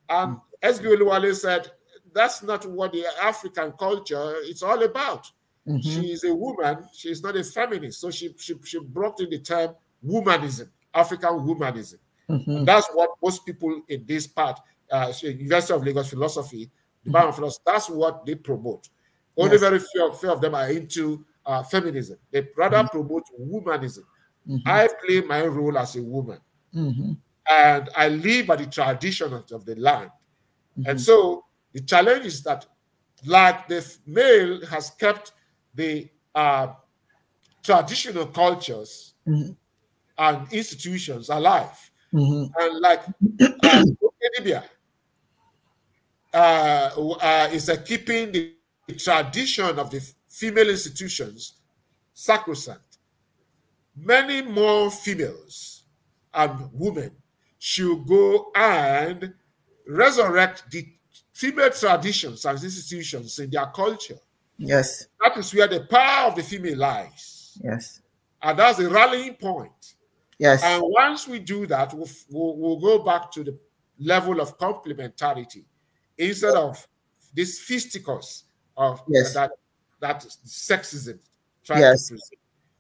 And hmm. S.B. Oluwale said, that's not what the African culture is all about. Mm -hmm. She is a woman. She is not a feminist. So she, she, she brought in the term womanism, African womanism. Mm -hmm. that's what most people in this part, uh, University of Lagos philosophy, the mm -hmm. philosophy, that's what they promote. Only yes. very few of, few of, them are into uh, feminism. They rather mm -hmm. promote womanism. Mm -hmm. I play my role as a woman, mm-hmm. and I live by the tradition of, of the land. Mm-hmm. And so the challenge is that, like the male has kept the uh, traditional cultures mm-hmm. and institutions alive. Mm -hmm. And like Libya [COUGHS] uh, uh, uh, is keeping the the tradition of the female institutions sacrosanct. Many more females and women should go and resurrect the female traditions and institutions in their culture. Yes. That is where the power of the female lies. Yes. And that's the rallying point. Yes. And once we do that, we'll, we'll, we'll go back to the level of complementarity instead of this fisticuffs of yes. that that sexism yes. to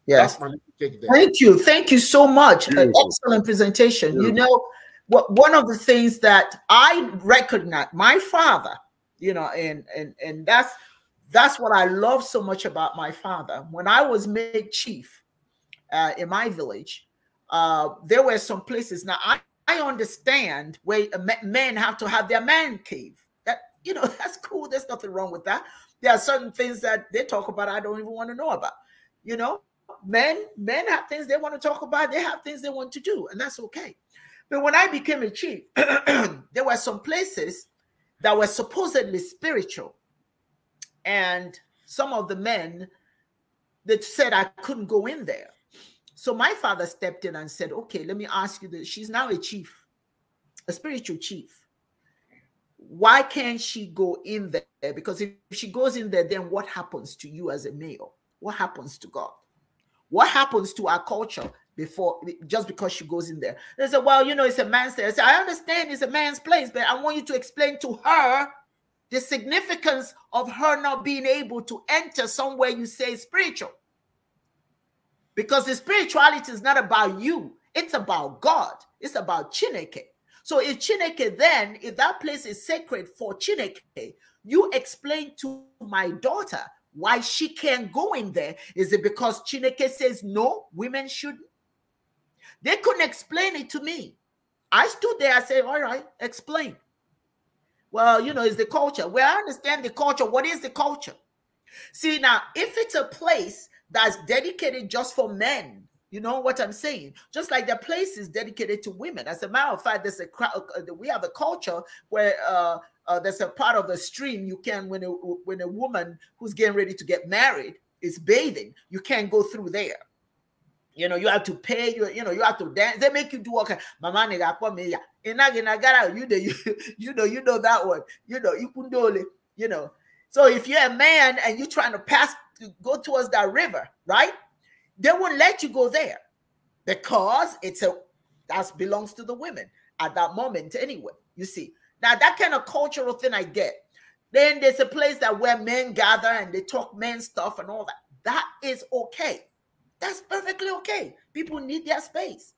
Yes. Thank you. Thank you so much. Uh, An excellent presentation. You know, what one of the things that I recognize, my father, you know, and and and that's that's what I love so much about my father. When I was made chief uh, in my village, uh, there were some places. Now I, I understand where men have to have their man cave you know, [LAUGHS] that's cool. There's nothing wrong with that. There are certain things that they talk about I don't even want to know about. You know, men, men have things they want to talk about, they have things they want to do, and that's okay. But when I became a chief, [CLEARS THROAT] there were some places that were supposedly spiritual. And some of the men that said I couldn't go in there. So my father stepped in and said, Okay, let me ask you this. She's now a chief, a spiritual chief why can't she go in there? Because if she goes in there, then what happens to you as a male? What happens to God? What happens to our culture before just because she goes in there? They say, well, you know, it's a man's place. I, I understand it's a man's place, but I want you to explain to her the significance of her not being able to enter somewhere you say spiritual. Because the spirituality is not about you, it's about God, it's about Chineke. So if Chineke then, if that place is sacred for Chineke, you explain to my daughter why she can't go in there. Is it because Chineke says no, women shouldn't? They couldn't explain it to me. I stood there, I said, all right, explain. Well, you know, it's the culture. Well, I understand the culture. What is the culture? See, now, if it's a place that's dedicated just for men, you know what I'm saying? Just like the place places dedicated to women. As a matter of fact, there's a uh, uh, we have a culture where uh, uh, there's a part of the stream you can when a when a woman who's getting ready to get married is bathing, you can't go through there. You know, you have to pay. You you know, you have to dance. They make you do all kind. Mama nigga, come here. You know, you, [LAUGHS] you know, you know that one. You know, you kundole. You know. So if you're a man and you're trying to pass, to go towards that river, right? They wouldn't let you go there because it's a that belongs to the women at that moment anyway. You see, now that kind of cultural thing I get. Then there's a place that where men gather and they talk men stuff and all that. That is okay. That's perfectly okay. People need their space.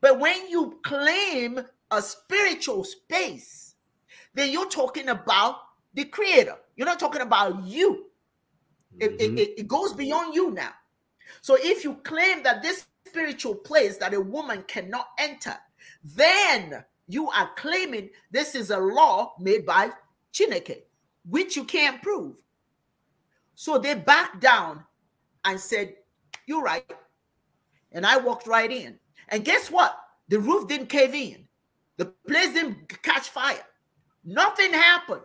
But when you claim a spiritual space, then you're talking about the creator. You're not talking about you. Mm -hmm. it, mm-hmm. it, it goes beyond you now. So if you claim that this spiritual place that a woman cannot enter, then you are claiming this is a law made by Chineke, which you can't prove. So they backed down and said, You're right. And I walked right in. And guess what? The roof didn't cave in, the place didn't catch fire. Nothing happened.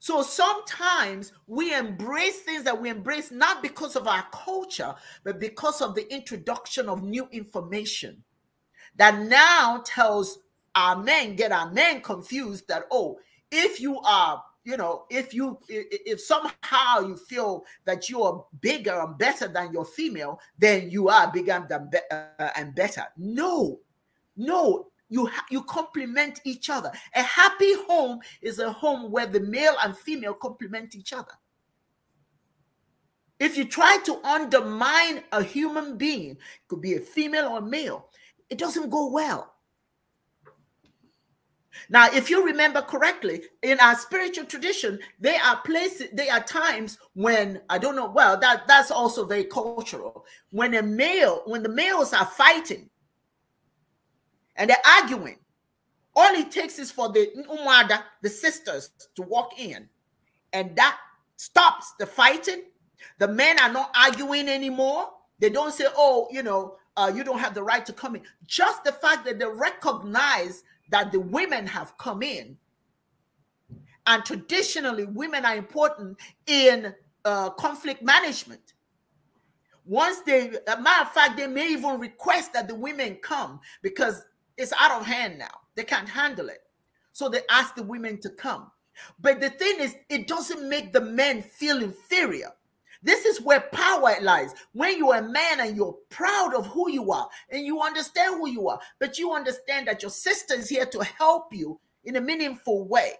So sometimes we embrace things that we embrace not because of our culture, but because of the introduction of new information that now tells our men, get our men confused that, oh, if you are, you know, if you, if somehow you feel that you are bigger and better than your female, then you are bigger than, uh, and better. No, no, you you complement each other a happy home is a home where the male and female complement each other if you try to undermine a human being it could be a female or a male it doesn't go well now if you remember correctly in our spiritual tradition there are places there are times when i don't know well that that's also very cultural when a male when the males are fighting and they're arguing. All it takes is for the umada, the sisters, to walk in, and that stops the fighting. The men are not arguing anymore. They don't say, "Oh, you know, uh, you don't have the right to come in." Just the fact that they recognize that the women have come in, and traditionally, women are important in uh, conflict management. Once they, a matter of fact, they may even request that the women come because it's out of hand now. They can't handle it. So they ask the women to come. But the thing is, it doesn't make the men feel inferior. This is where power lies. When you're a man and you're proud of who you are and you understand who you are, but you understand that your sister is here to help you in a meaningful way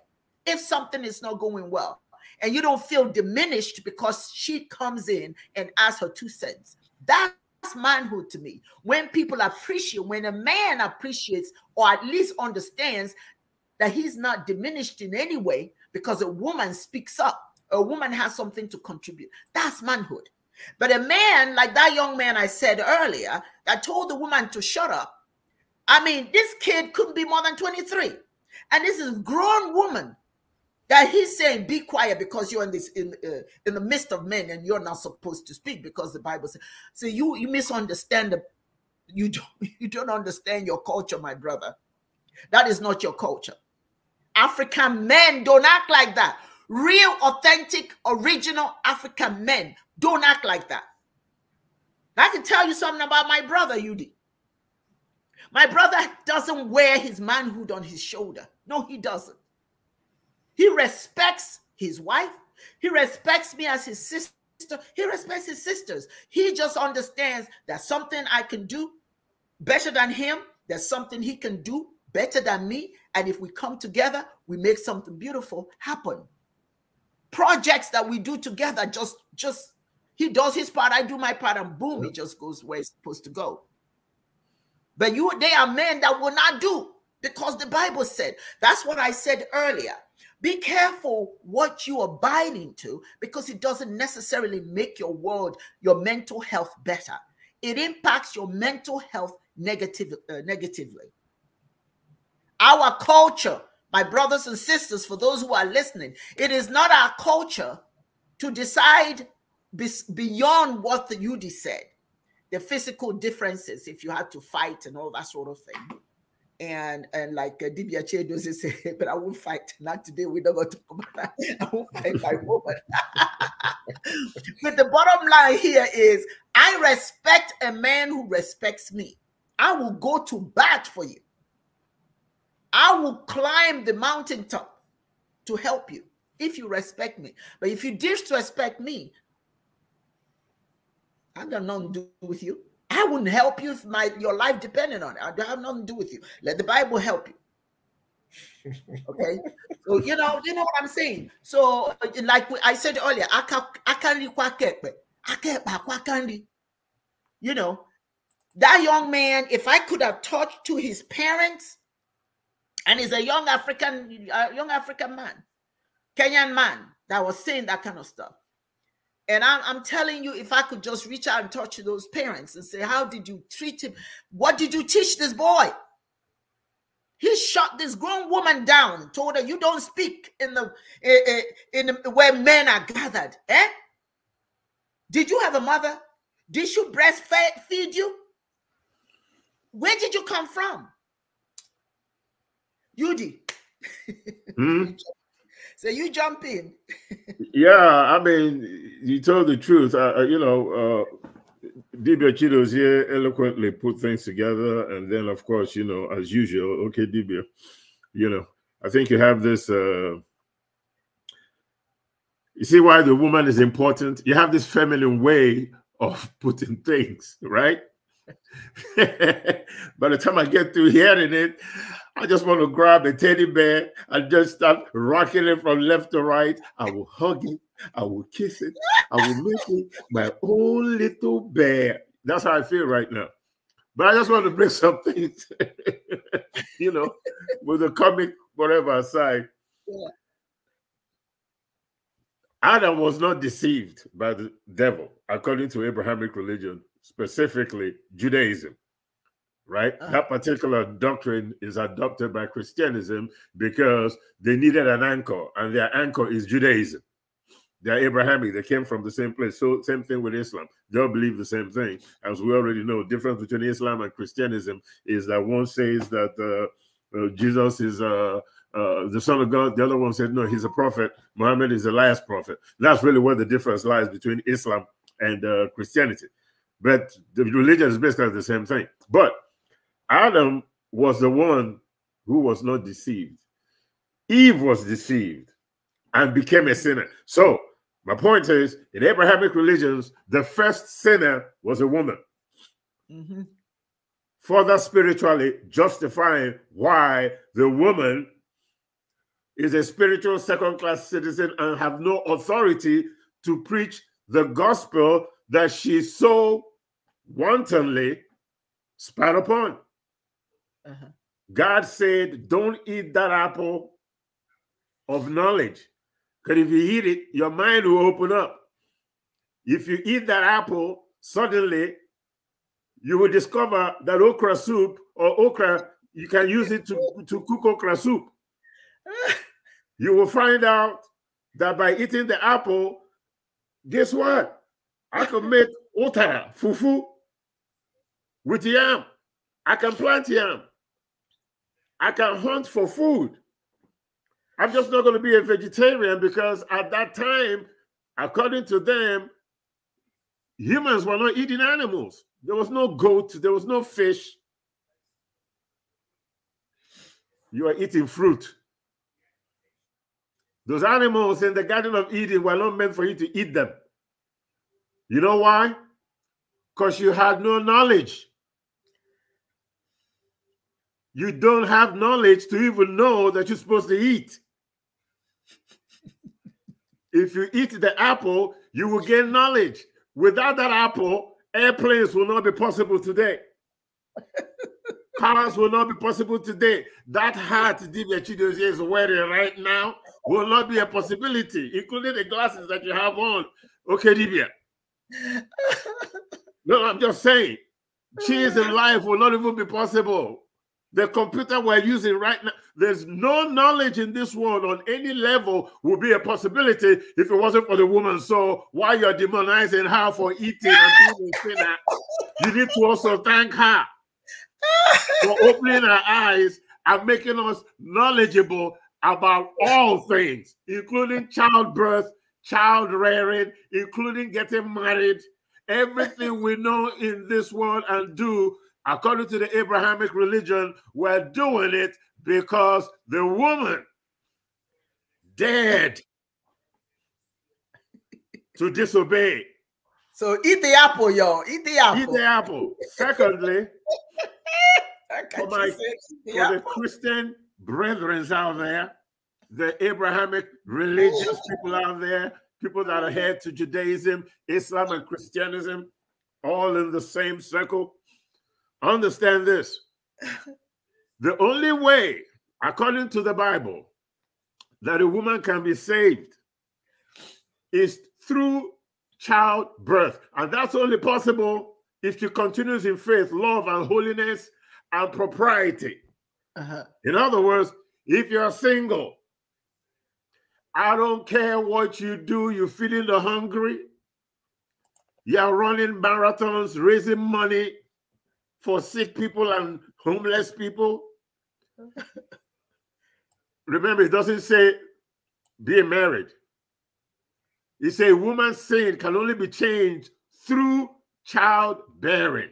if something is not going well. And you don't feel diminished because she comes in and asks her two cents. That that's manhood to me. When people appreciate, when a man appreciates or at least understands that he's not diminished in any way because a woman speaks up, a woman has something to contribute. That's manhood. But a man like that young man I said earlier that told the woman to shut up. I mean, this kid couldn't be more than 23. And this is grown woman that he's saying be quiet because you're in this in uh, in the midst of men and you're not supposed to speak because the bible says so you you misunderstand the [LAUGHS] you don't you don't understand your culture my brother that is not your culture african men don't act like that real authentic original african men don't act like that i can tell you something about my brother yudi my brother doesn't wear his manhood on his shoulder no he doesn't he respects his wife. He respects me as his sister. He respects his sisters. He just understands that something I can do better than him. There's something he can do better than me. And if we come together, we make something beautiful happen. Projects that we do together, just, just, he does his part, I do my part, and boom, it just goes where it's supposed to go. But you, they are men that will not do because the Bible said. That's what I said earlier. Be careful what you are binding to because it doesn't necessarily make your world, your mental health better. It impacts your mental health negative, uh, negatively. Our culture, my brothers and sisters, for those who are listening, it is not our culture to decide beyond what the UD said, the physical differences, if you had to fight and all that sort of thing and and like uh, Dibia Che doesn't say, [LAUGHS] but I won't fight. Not today. We don't go to that. [LAUGHS] I won't fight my woman. [LAUGHS] but the bottom line here is, I respect a man who respects me. I will go to bat for you. I will climb the mountaintop to help you if you respect me. But if you disrespect me, I got nothing to do with you. I wouldn't help you if my your life depended on it. I have nothing to do with you. Let the Bible help you. okay, so you know, you know what I'm saying. So, like I said earlier, I can not I can't You know, that young man. If I could have talked to his parents, and he's a young African, a young African man, Kenyan man that was saying that kind of stuff. And I'm, I'm, telling you, if I could just reach out and talk to those parents and say, How did you treat him? What did you teach this boy? He shot this grown woman down, told her, You don't speak in the eh, eh, in, in where men are gathered. Eh? Did you have a mother? Did she breastfeed you? Where did you come from? Judy?" Mm. [LAUGHS] So you jump in. yeah, I mean, you told the truth. I, you know, uh, Dibia Chido's here eloquently put things together. And then, of course, you know, as usual, okay, Dibia, you know, I think you have this. Uh, you see why the woman is important? You have this feminine way of putting things, right? [LAUGHS] By the time I get through hearing it, I just want to grab a teddy bear and just start rocking it from left to right. I will hug it. I will kiss it. I will make it my own little bear. That's how I feel right now. But I just want to bring [LAUGHS] something, you know, with the comic whatever aside. Adam was not deceived by the devil, according to Abrahamic religion, specifically Judaism right? Uh-huh. That particular doctrine is adopted by Christianism because they needed an anchor, and their anchor is Judaism. They're Abrahamic, they came from the same place. So, same thing with Islam. They all believe the same thing. As we already know, difference between Islam and Christianism is that one says that uh, uh, Jesus is uh, uh, the Son of God, the other one said, no, he's a prophet. Muhammad is the last prophet. That's really where the difference lies between Islam and uh, Christianity. But the religion is basically the same thing. But Adam was the one who was not deceived. Eve was deceived and became a sinner. So, my point is in Abrahamic religions, the first sinner was a woman. Mm-hmm. Further spiritually justifying why the woman is a spiritual second class citizen and have no authority to preach the gospel that she so wantonly spat upon. Uh-huh. God said, Don't eat that apple of knowledge. Because if you eat it, your mind will open up. If you eat that apple, suddenly you will discover that okra soup or okra, you can use it to, to cook okra soup. [LAUGHS] you will find out that by eating the apple, guess what? I can make otara, fufu, with yam. I can plant yam. I can hunt for food. I'm just not going to be a vegetarian because at that time, according to them, humans were not eating animals. There was no goat, there was no fish. You are eating fruit. Those animals in the Garden of Eden were not meant for you to eat them. You know why? Because you had no knowledge. You don't have knowledge to even know that you're supposed to eat. if you eat the apple, you will gain knowledge. Without that apple, airplanes will not be possible today. [LAUGHS] Cars will not be possible today. That hat Divya Chidozie is wearing right now will not be a possibility, including the glasses that you have on. Okay, Divya. [LAUGHS] no, I'm just saying, [LAUGHS] cheese in life will not even be possible the computer we're using right now. There's no knowledge in this world on any level would be a possibility if it wasn't for the woman. So why you're demonizing her for eating and being a sinner, you need to also thank her for opening her eyes and making us knowledgeable about all things, including childbirth, child rearing, including getting married. Everything we know in this world and do according to the Abrahamic religion, were doing it because the woman dared to disobey. So eat the apple, y'all. Eat the apple. Eat the apple. Secondly, [LAUGHS] for my for apple. the Christian brethren out there, the Abrahamic religious people out there, people that are head to Judaism, Islam, and Christianism, all in the same circle. Understand this. [LAUGHS] the only way, according to the Bible, that a woman can be saved is through childbirth. And that's only possible if she continues in faith, love, and holiness and propriety. Uh -huh. In other words, if you're single, I don't care what you do, you're feeding the hungry, you're running marathons, raising money, for sick people and homeless people? [LAUGHS] Remember, it doesn't say being married. It says woman's sin can only be changed through childbearing.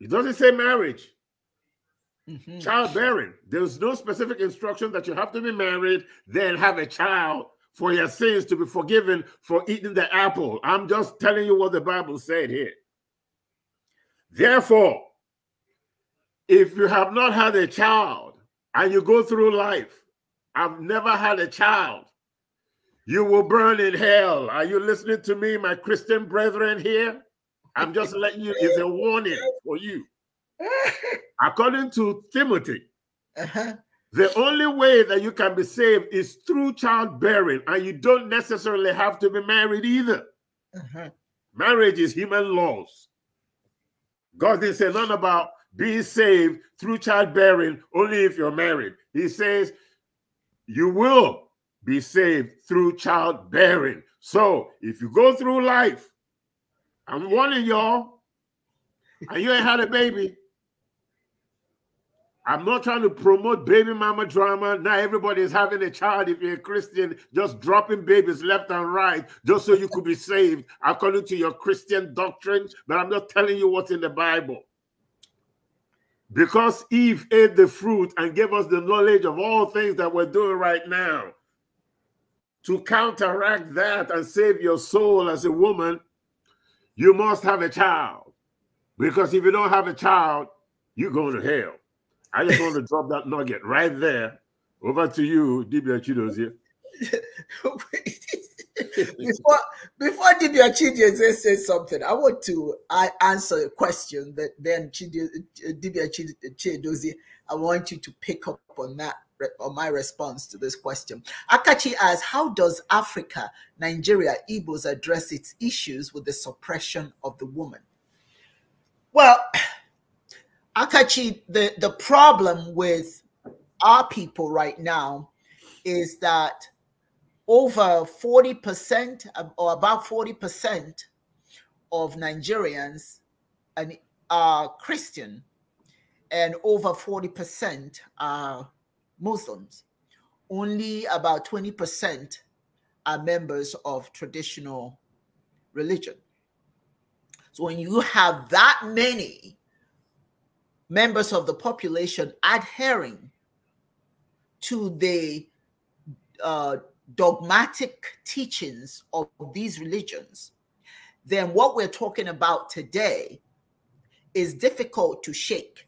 It doesn't say marriage. Mm -hmm. Childbearing. There's no specific instruction that you have to be married, then have a child for your sins to be forgiven for eating the apple. I'm just telling you what the Bible said here. Therefore, if you have not had a child and you go through life, I've never had a child, you will burn in hell. Are you listening to me, my Christian brethren here? I'm just letting you, it's a warning for you. According to Timothy, uh -huh. the only way that you can be saved is through childbearing, and you don't necessarily have to be married either. Uh -huh. Marriage is human laws. God didn't say nothing about being saved through childbearing only if you're married. He says you will be saved through childbearing. So if you go through life, I'm warning y'all, and you ain't had a baby, I'm not trying to promote baby mama drama. Now everybody is having a child. If you're a Christian, just dropping babies left and right just so you could be saved according to your Christian doctrine. But I'm not telling you what's in the Bible. Because Eve ate the fruit and gave us the knowledge of all things that we're doing right now. To counteract that and save your soul as a woman, you must have a child. Because if you don't have a child, you're going to hell. I just want to drop that nugget right there. Over to you, Dibia Chidozie. [LAUGHS] before before Dibia Chidozie says something, I want to I answer a question that then Chidio, Dibia Chidozie, I want you to pick up on that on my response to this question. Akachi asks, how does Africa, Nigeria, Igbos address its issues with the suppression of the woman? Well, Akachi, the, the problem with our people right now is that over 40% or about 40% of Nigerians are Christian and over 40% are Muslims. Only about 20% are members of traditional religion. So when you have that many members of the population adhering to the uh, dogmatic teachings of these religions, then what we're talking about today is difficult to shake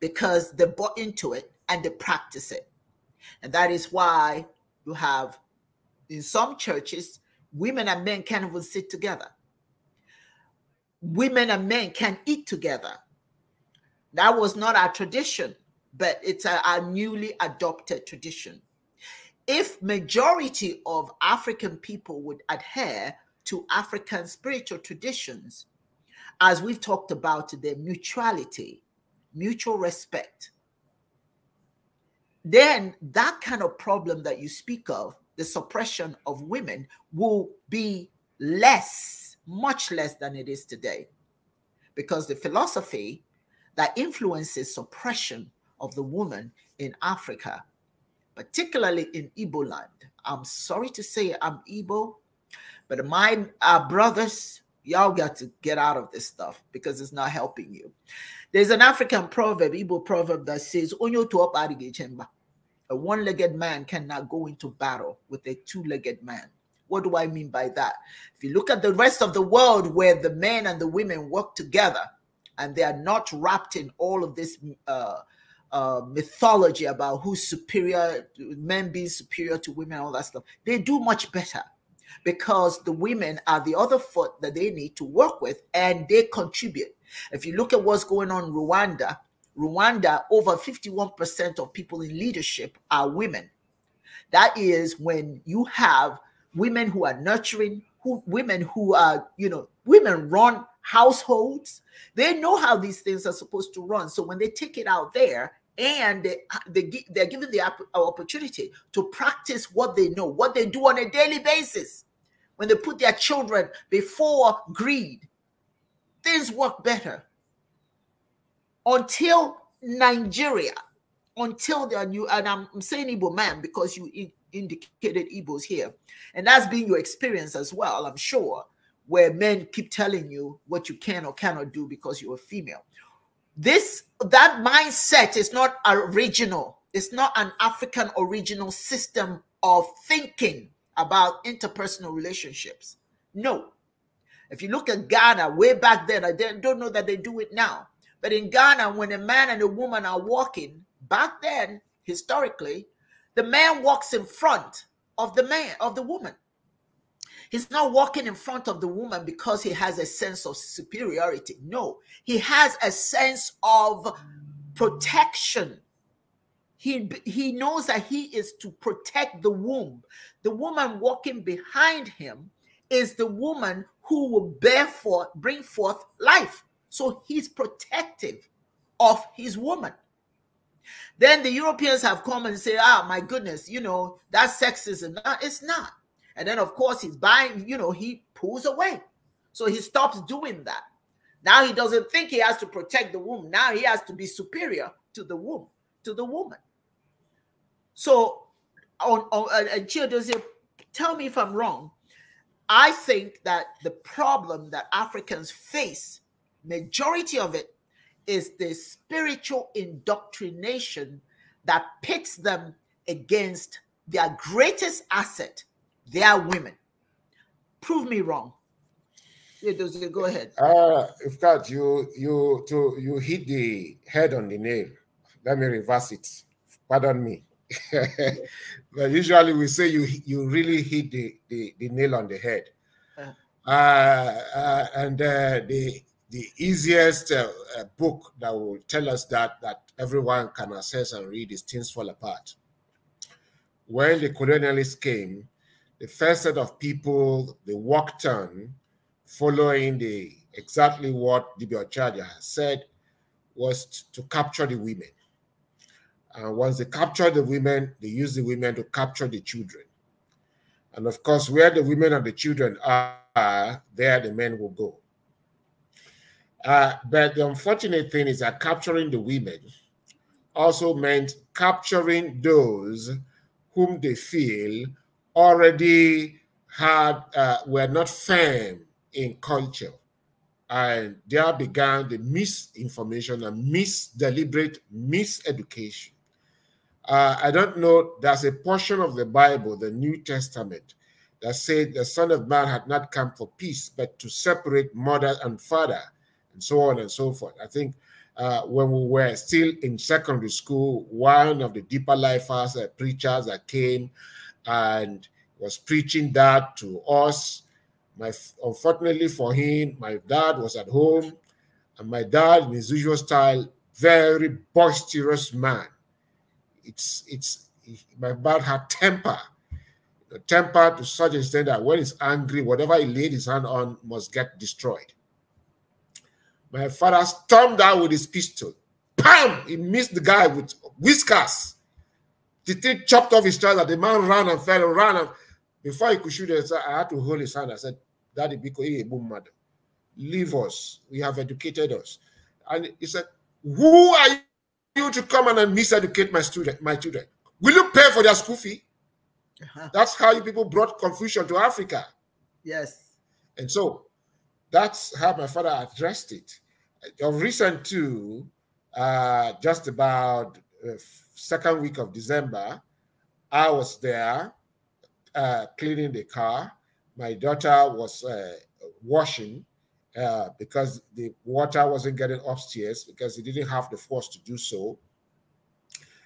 because they bought into it and they practice it. And that is why you have, in some churches, women and men can't even sit together. Women and men can't eat together that was not our tradition, but it's a, our newly adopted tradition. If majority of African people would adhere to African spiritual traditions, as we've talked about their mutuality, mutual respect, then that kind of problem that you speak of, the suppression of women, will be less, much less than it is today. Because the philosophy that influences suppression of the woman in Africa, particularly in Igbo land. I'm sorry to say I'm Igbo, but my uh, brothers, y'all got to get out of this stuff because it's not helping you. There's an African proverb, Igbo proverb that says, Onyo to a one-legged man cannot go into battle with a two-legged man. What do I mean by that? If you look at the rest of the world where the men and the women work together, and they are not wrapped in all of this uh, uh, mythology about who's superior, men being superior to women, all that stuff. They do much better because the women are the other foot that they need to work with and they contribute. If you look at what's going on in Rwanda, Rwanda, over 51% of people in leadership are women. That is when you have women who are nurturing, who women who are, you know, women run households. They know how these things are supposed to run. So when they take it out there, and they, they they're given the uh, opportunity to practice what they know, what they do on a daily basis. When they put their children before greed, things work better. Until Nigeria, until there new, and I'm saying Igbo man because you indicated Igbos here, and that's been your experience as well, I'm sure where men keep telling you what you can or cannot do because you're a female. This that mindset is not original. It's not an African original system of thinking about interpersonal relationships. No. If you look at Ghana way back then, I don't know that they do it now. But in Ghana, when a man and a woman are walking, back then, historically, the man walks in front of the man, of the woman. He's not walking in front of the woman because he has a sense of superiority. No, he has a sense of protection. He, he knows that he is to protect the womb. The woman walking behind him is the woman who will bear forth, bring forth life. So he's protective of his woman. Then the Europeans have come and say, ah, my goodness, you know, that's sexism. No, it's not. And then, of course, he's buying, you know, he pulls away. So he stops doing that. Now he doesn't think he has to protect the womb. Now he has to be superior to the womb, to the woman. So, on, on and Chia does it, tell me if I'm wrong. I think that the problem that Africans face, majority of it, is the spiritual indoctrination that pits them against their greatest asset, they are women. Prove me wrong. Edozie, go uh, ahead. Uh, in fact, you you to you hit the head on the nail. Let me reverse it. Pardon me. [LAUGHS] but usually we say you you really hit the, the, the nail on the head. Uh-huh. Uh, uh, and uh, the the easiest uh, book that will tell us that that everyone can assess and read is Things Fall Apart. When the colonialists came, the first set of people they walked on following the exactly what DB Ochadia has said was to capture the women. And once they captured the women, they used the women to capture the children. And of course, where the women and the children are, there the men will go. Uh, but the unfortunate thing is that capturing the women also meant capturing those whom they feel already had uh, were not firm in culture, and there began the misinformation and misdeliberate miseducation. Uh, I don't know. There's a portion of the Bible, the New Testament, that said the Son of Man had not come for peace, but to separate mother and father, and so on and so forth. I think uh, when we were still in secondary school, one of the deeper life as uh, preachers that came and was preaching that to us. My, unfortunately for him, my dad was at home, and my dad, in his usual style, very boisterous man. It's it's my dad had temper, the temper to such an extent that when he's angry, whatever he laid his hand on must get destroyed. My father stormed out with his pistol. Bam! He missed the guy with whiskers. The thing chopped off his trouser. The man ran and fell and ran. And before he could shoot I had to hold his hand. I said, Daddy, because he a boom mother. Leave us. We have educated us. And he said, Who are you to come and miseducate my student, my children? Will you pay for their school fee? Uh -huh. That's how you people brought confusion to Africa. Yes. And so that's how my father addressed it. Of recent too, uh, just about uh, second week of December, I was there uh, cleaning the car. My daughter was uh, washing uh, because the water wasn't getting upstairs because he didn't have the force to do so.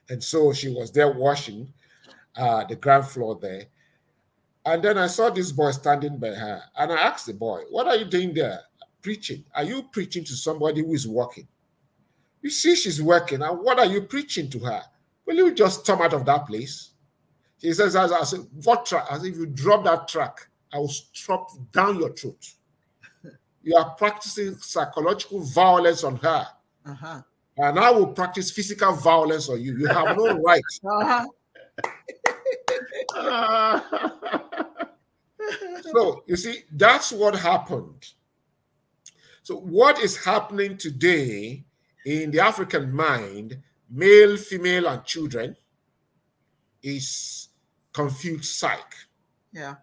And so she was there washing uh, the ground floor there. And then I saw this boy standing by her. And I asked the boy, What are you doing there? Preaching. Are you preaching to somebody who is working? You see, she's working. And what are you preaching to her? Will you just come out of that place? He says, as, said, what track? As if you drop that track, I will strop down your throat. you are practicing psychological violence on her. Uh -huh. And I will practice physical violence on you. You have no [LAUGHS] right. Uh -huh. [LAUGHS] so, you see, that's what happened. So, what is happening today in the African mind male, female, and children is confused psych. Yeah.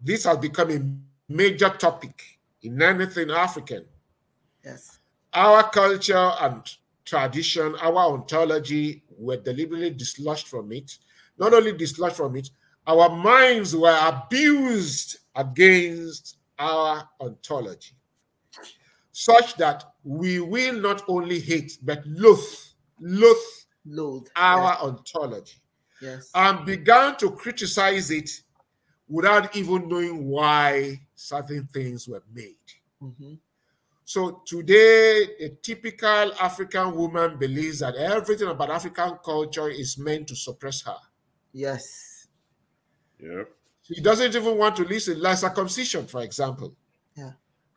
This has become a major topic in anything African. Yes. Our culture and tradition, our ontology were deliberately dislodged from it. Not only dislodged from it, our minds were abused against our ontology, such that we will not only hate, but loathe loathed, our yeah. ontology yes. and began to criticize it without even knowing why certain things were made. Mm -hmm. So today, a typical African woman believes that everything about African culture is meant to suppress her. Yes. Yep. She doesn't even want to listen, like circumcision, for example. Yeah.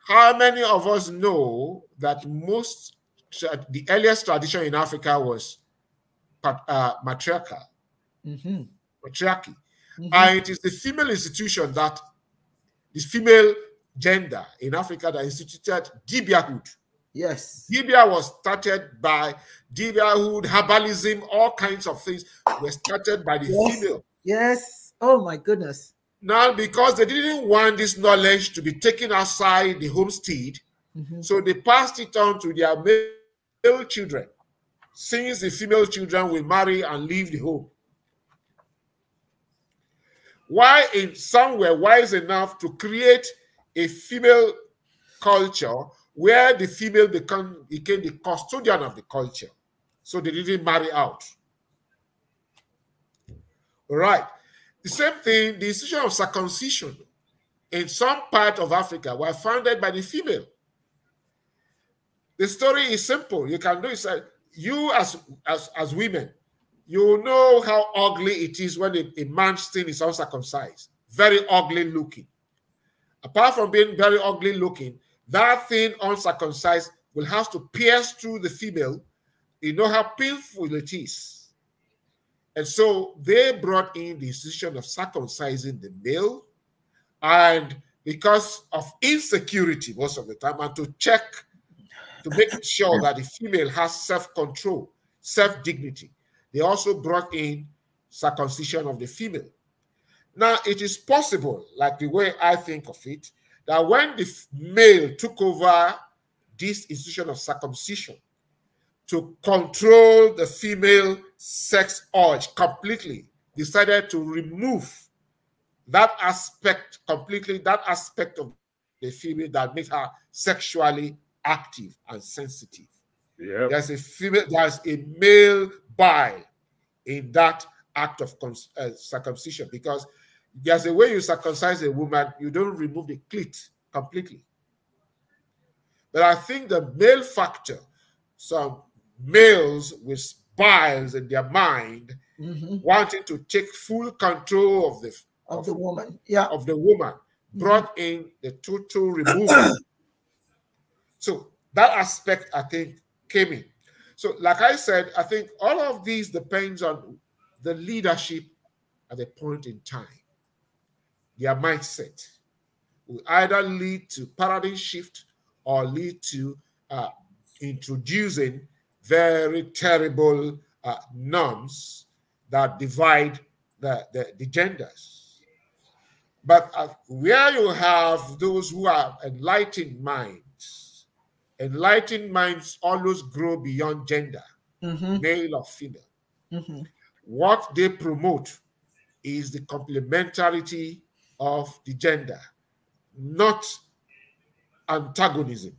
How many of us know that most uh, the earliest tradition in Africa was uh, matriarchal, mm-hmm. matriarchy, mm-hmm. and it is the female institution that the female gender in Africa that instituted Dibiahood. Yes, Dibia was started by Dibiahood, herbalism, all kinds of things were started by the yes. female. Yes. Oh my goodness. Now, because they didn't want this knowledge to be taken outside the homestead, mm-hmm. so they passed it on to their male male children, since the female children will marry and leave the home. Why in, some were wise enough to create a female culture where the female become, became the custodian of the culture. So they didn't marry out. All right. The same thing, the institution of circumcision in some part of Africa were founded by the female. The story is simple. You can do it. You as as as women, you know how ugly it is when a, a man's thing is uncircumcised. Very ugly looking. Apart from being very ugly looking, that thing uncircumcised will have to pierce through the female. You know how painful it is. And so they brought in the decision of circumcising the male, and because of insecurity most of the time, and to check to make sure that the female has self-control, self-dignity. They also brought in circumcision of the female. Now, it is possible, like the way I think of it, that when the male took over this institution of circumcision to control the female sex urge completely, decided to remove that aspect completely, that aspect of the female that makes her sexually active and sensitive. Yep. There's a female, there's a male bile in that act of uh, circumcision because there's a way you circumcise a woman, you don't remove the clit completely. But I think the male factor, some males with biles in their mind, mm -hmm. wanting to take full control of the of, of the woman, yeah, of the woman, brought mm -hmm. in the total removal so that aspect, I think, came in. So, like I said, I think all of these depends on the leadership at a point in time, their mindset will either lead to paradigm shift or lead to uh, introducing very terrible uh, norms that divide the, the, the genders. But uh, where you have those who have enlightened mind, enlightened minds always grow beyond gender, mm-hmm. male or female. Mm-hmm. What they promote is the complementarity of the gender, not antagonism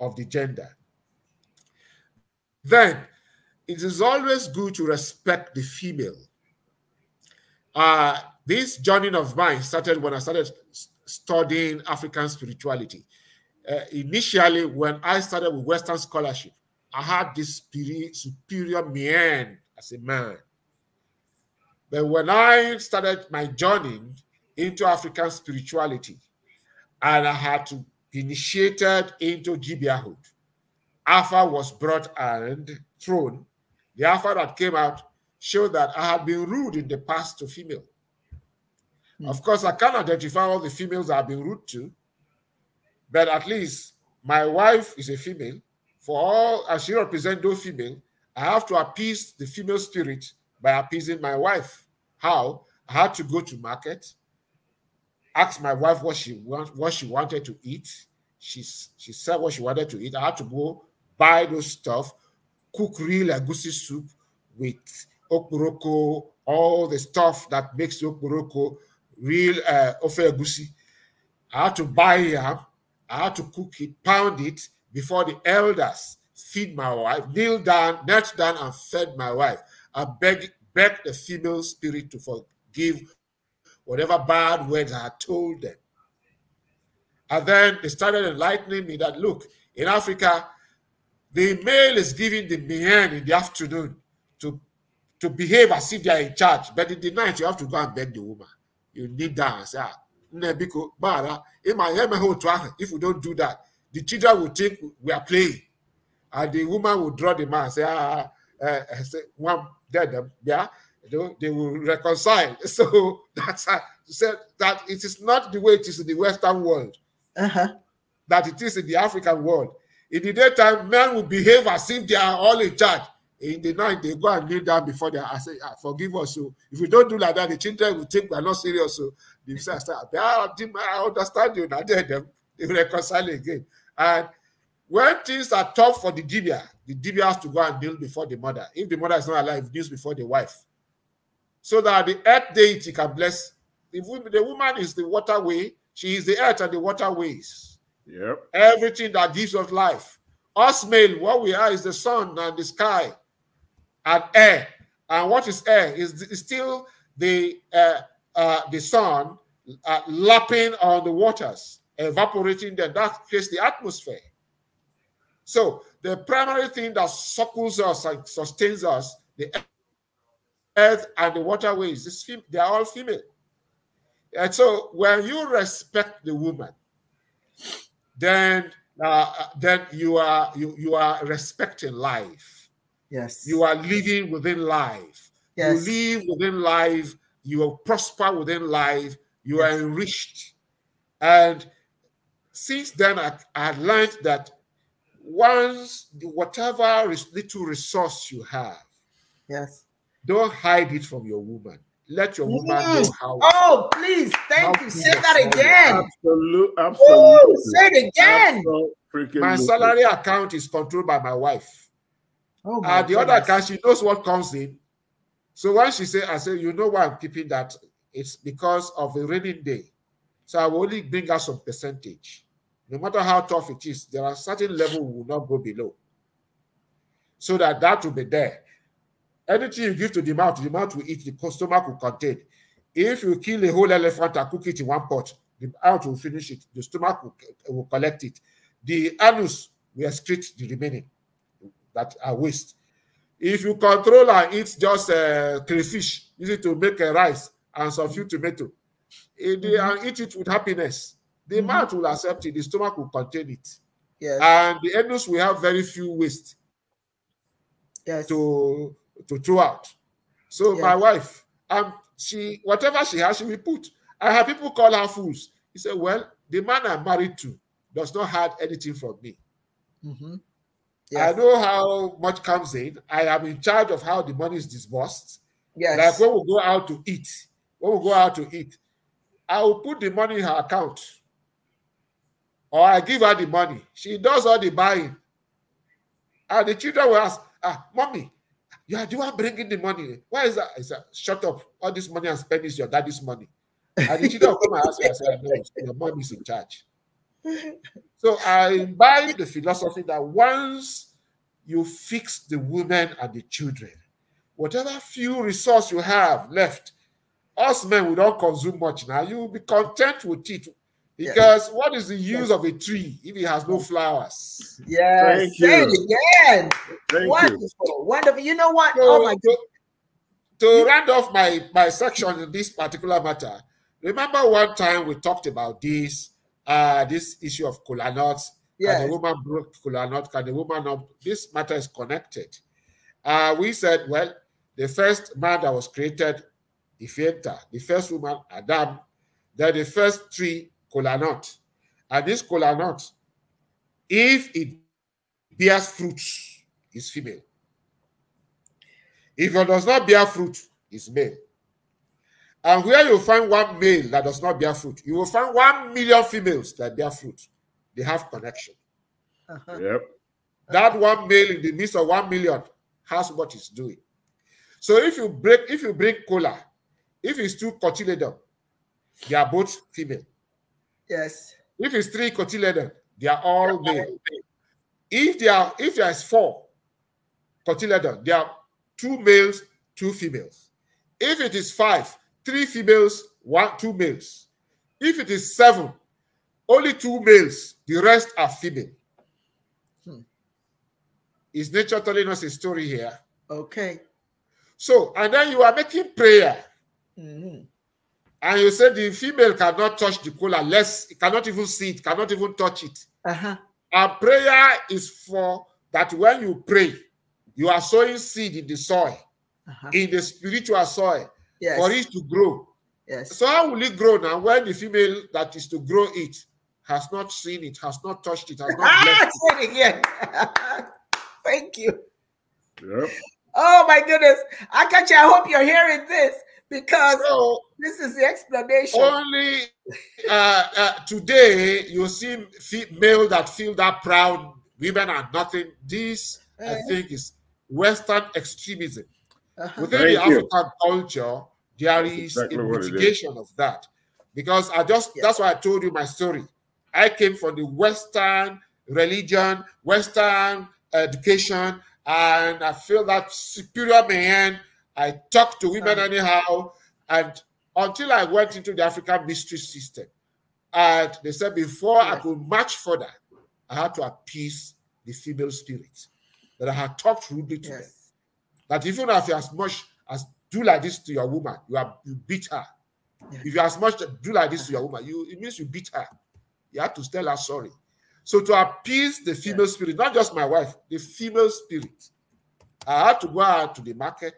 of the gender. Then it is always good to respect the female. Uh, this journey of mine started when I started studying African spirituality uh, initially when I started with Western scholarship, I had this superior mien as a man. But when I started my journey into African spirituality, and I had to be initiated into Gibeahhood, Alpha was brought and thrown. The Alpha that came out showed that I had been rude in the past to female. Mm. Of course, I can't identify all the females I've been rude to, but at least my wife is a female. For all as she represents those female, I have to appease the female spirit by appeasing my wife. How? I had to go to market, ask my wife what she want, what she wanted to eat. She she said what she wanted to eat. I had to go buy those stuff, cook real agusi soup with okuroko, all the stuff that makes okuroko real uh, ofe agusi. I had to buy yam. I had to cook it, pound it before the elders, feed my wife, kneel down, knelt down and fed my wife. I beg, beg the female spirit to forgive whatever bad words I told them. And then they started enlightening me that look, in Africa, the male is giving the men in the afternoon to, to behave as if they are in charge, but in the night you have to go and beg the woman. You need that. and say, ah, Nebiko Bara, in my home, if we don't do that, the children will think we are playing. And the woman will draw the man, say, ah, uh, say, one dead um, yeah, they will reconcile. [LAUGHS] So that's uh, said that it is not the way it is in the Western world, uh-huh. that it is in the African world. In the daytime, men will behave as if they are all in charge in the night they go and kneel down before their I say, ah, forgive us. So oh. if we don't do like that, the children will think we're not serious. So oh. the [LAUGHS] start, ah, I understand you. Now they, they, they reconcile again. And when things are tough for the dibia, the dibia has to go and kneel before the mother. If the mother is not alive, kneels before the wife. So that the earth deity can bless. The, the woman is the waterway, she is the earth and the waterways. Yep. Everything that gives us life. Us male, what we are is the sun and the sky and air. And what is air is, still the uh, uh, the sun uh, lapping on the waters, evaporating them. That creates the atmosphere. So the primary thing that circles us and sustains us, the earth and the waterways, is they are all female. And so when you respect the woman, then uh, then you are you you are respecting life Yes. You are living within life. Yes. You live within life. You prosper within life. You yes. are enriched. And since then, I, I learned that once whatever little resource you have, yes, don't hide it from your woman. Let your woman mm. know how. Oh, please, thank you. Say that again. absolutely. Oh, say it again. Absolute, my salary account is controlled by my wife. Oh uh, the goodness. other guy, she knows what comes in. So when she said, I said, you know why I'm keeping that? It's because of a raining day. So I will only bring out some percentage. No matter how tough it is, there are certain level we will not go below. So that that will be there. Anything you give to the mouth, the mouth will eat, the stomach will contain. If you kill a whole elephant and cook it in one pot, the mouth will finish it, the stomach will, will collect it. The anus will excrete the remaining that are waste. If you control and eat just uh, crayfish, use to make a uh, rice and some few tomato, mm-hmm. and mm-hmm. eat it with happiness, the mm-hmm. mouth will accept it, the stomach will contain it. Yes. And the anus will have very few waste yes. to, to throw out. So my wife, um, she whatever she has, she will put. I have people call her fools. He said, Well, the man I'm married to does not hide anything from me. Mm-hmm. Yes. I know how much comes in. I am in charge of how the money is disbursed. Yes. Like when we go out to eat, when we go out to eat, I will put the money in her account. Or I give her the money. She does all the buying. And the children will ask, ah, mommy, you are the one bringing the money. Why is that? I said, shut up. All this money i spend spending is your daddy's money. And the children will come and ask me, I said, no, your mom is in charge so I imbibe the philosophy that once you fix the women and the children, whatever few resource you have left, us men we don't consume much now. You will be content with it. Because what is the use of a tree if it has no flowers? Yes. Thank Say you. it again. wonderful. You. Wonderful. You know what? So, oh my God. To, to round off my, my section in this particular matter, remember one time we talked about this uh, this issue of cola nuts. Yeah. Can the woman broke cola nut? Can the woman not? This matter is connected. Uh, we said, well, the first man that was created, Ifenta, the first woman, Adam, then the first tree, cola nut. And this cola nut, if it bears fruits, is female. If it does not bear fruit, is male. And where you find one male that does not bear fruit, you will find one million females that bear fruit. They have connection. Uh -huh. Yep. That one male in the midst of one million has what he's doing. So if you break, if you bring cola, if it's two cotyledon, they are both female. Yes. If it's three cotyledon, they are all yeah. male. If they are if there is four cotyledon, there are two males, two females. If it is five, three females, one, two males. If it is seven, only two males, the rest are female. Hmm. Is nature telling us a story here? Okay. So, and then you are making prayer. Mm -hmm. And you said the female cannot touch the cola, less it cannot even see it, cannot even touch it. Uh-huh. And prayer is for that when you pray, you are sowing seed in the soil, uh -huh. in the spiritual soil yes. for it to grow. Yes. So how will it grow now when the female that is to grow it has not seen it, has not touched it, has not ah, blessed it? it again. [LAUGHS] Thank you. Yep. Oh my goodness. Akachi, I hope you're hearing this because so, this is the explanation. Only uh, uh, today you see male that feel that proud. Women are nothing. This, uh -huh. I uh-huh. think, is Western extremism. Uh-huh. Within Thank the African you. culture, there is exactly a mitigation of that. Because I just, yeah. that's why I told you my story. I came from the Western religion, Western education, and I feel that superior man. I talked to women uh-huh. anyhow, and until I went into the African mystery system, and they said before I could march further, I had to appease the female spirit that I had talked rudely to yes. them. That if you have as much as do like this to your woman, you are you beat her. Yeah. If you as much do like this to your woman, you it means you beat her. You have to tell her sorry. So to appease the female yeah. spirit, not just my wife, the female spirit, I had to go out to the market,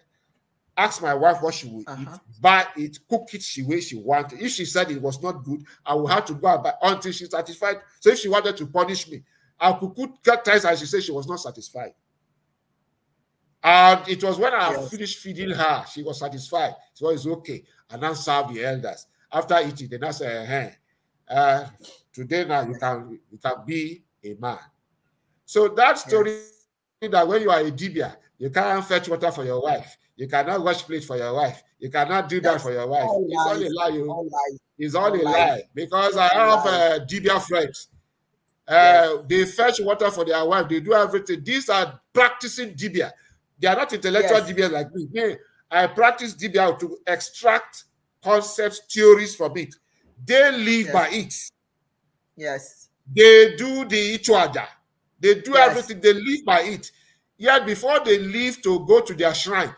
ask my wife what she would uh -huh. eat, uh-huh. buy it, cook it the way she wanted. If she said it was not good, I would have to go out buy until she's satisfied. So if she wanted to punish me, I could cook cut ties and she said she was not satisfied. And it was when I yes. finished feeding her, she was satisfied. So oh, it's okay. And then serve the elders. After eating, then I said, hey, uh, today now you can you can be a man. So that story yes. that when you are a dibia, you can't fetch water for your wife, you cannot wash plate for your wife, you cannot do That's that for your wife. All it's all a lie. You, oh. all it's all, all a lie. Because I have uh, dibia friends. Uh, yes. They fetch water for their wife. They do everything. These are practicing dibia. They are not intellectual yes. DBAs like me. They, I practice DBA to extract concepts, theories from it. They live yes. by it. Yes. They do the Ichuaja. They do yes. everything. They live by it. Yet before they leave to go to their shrine,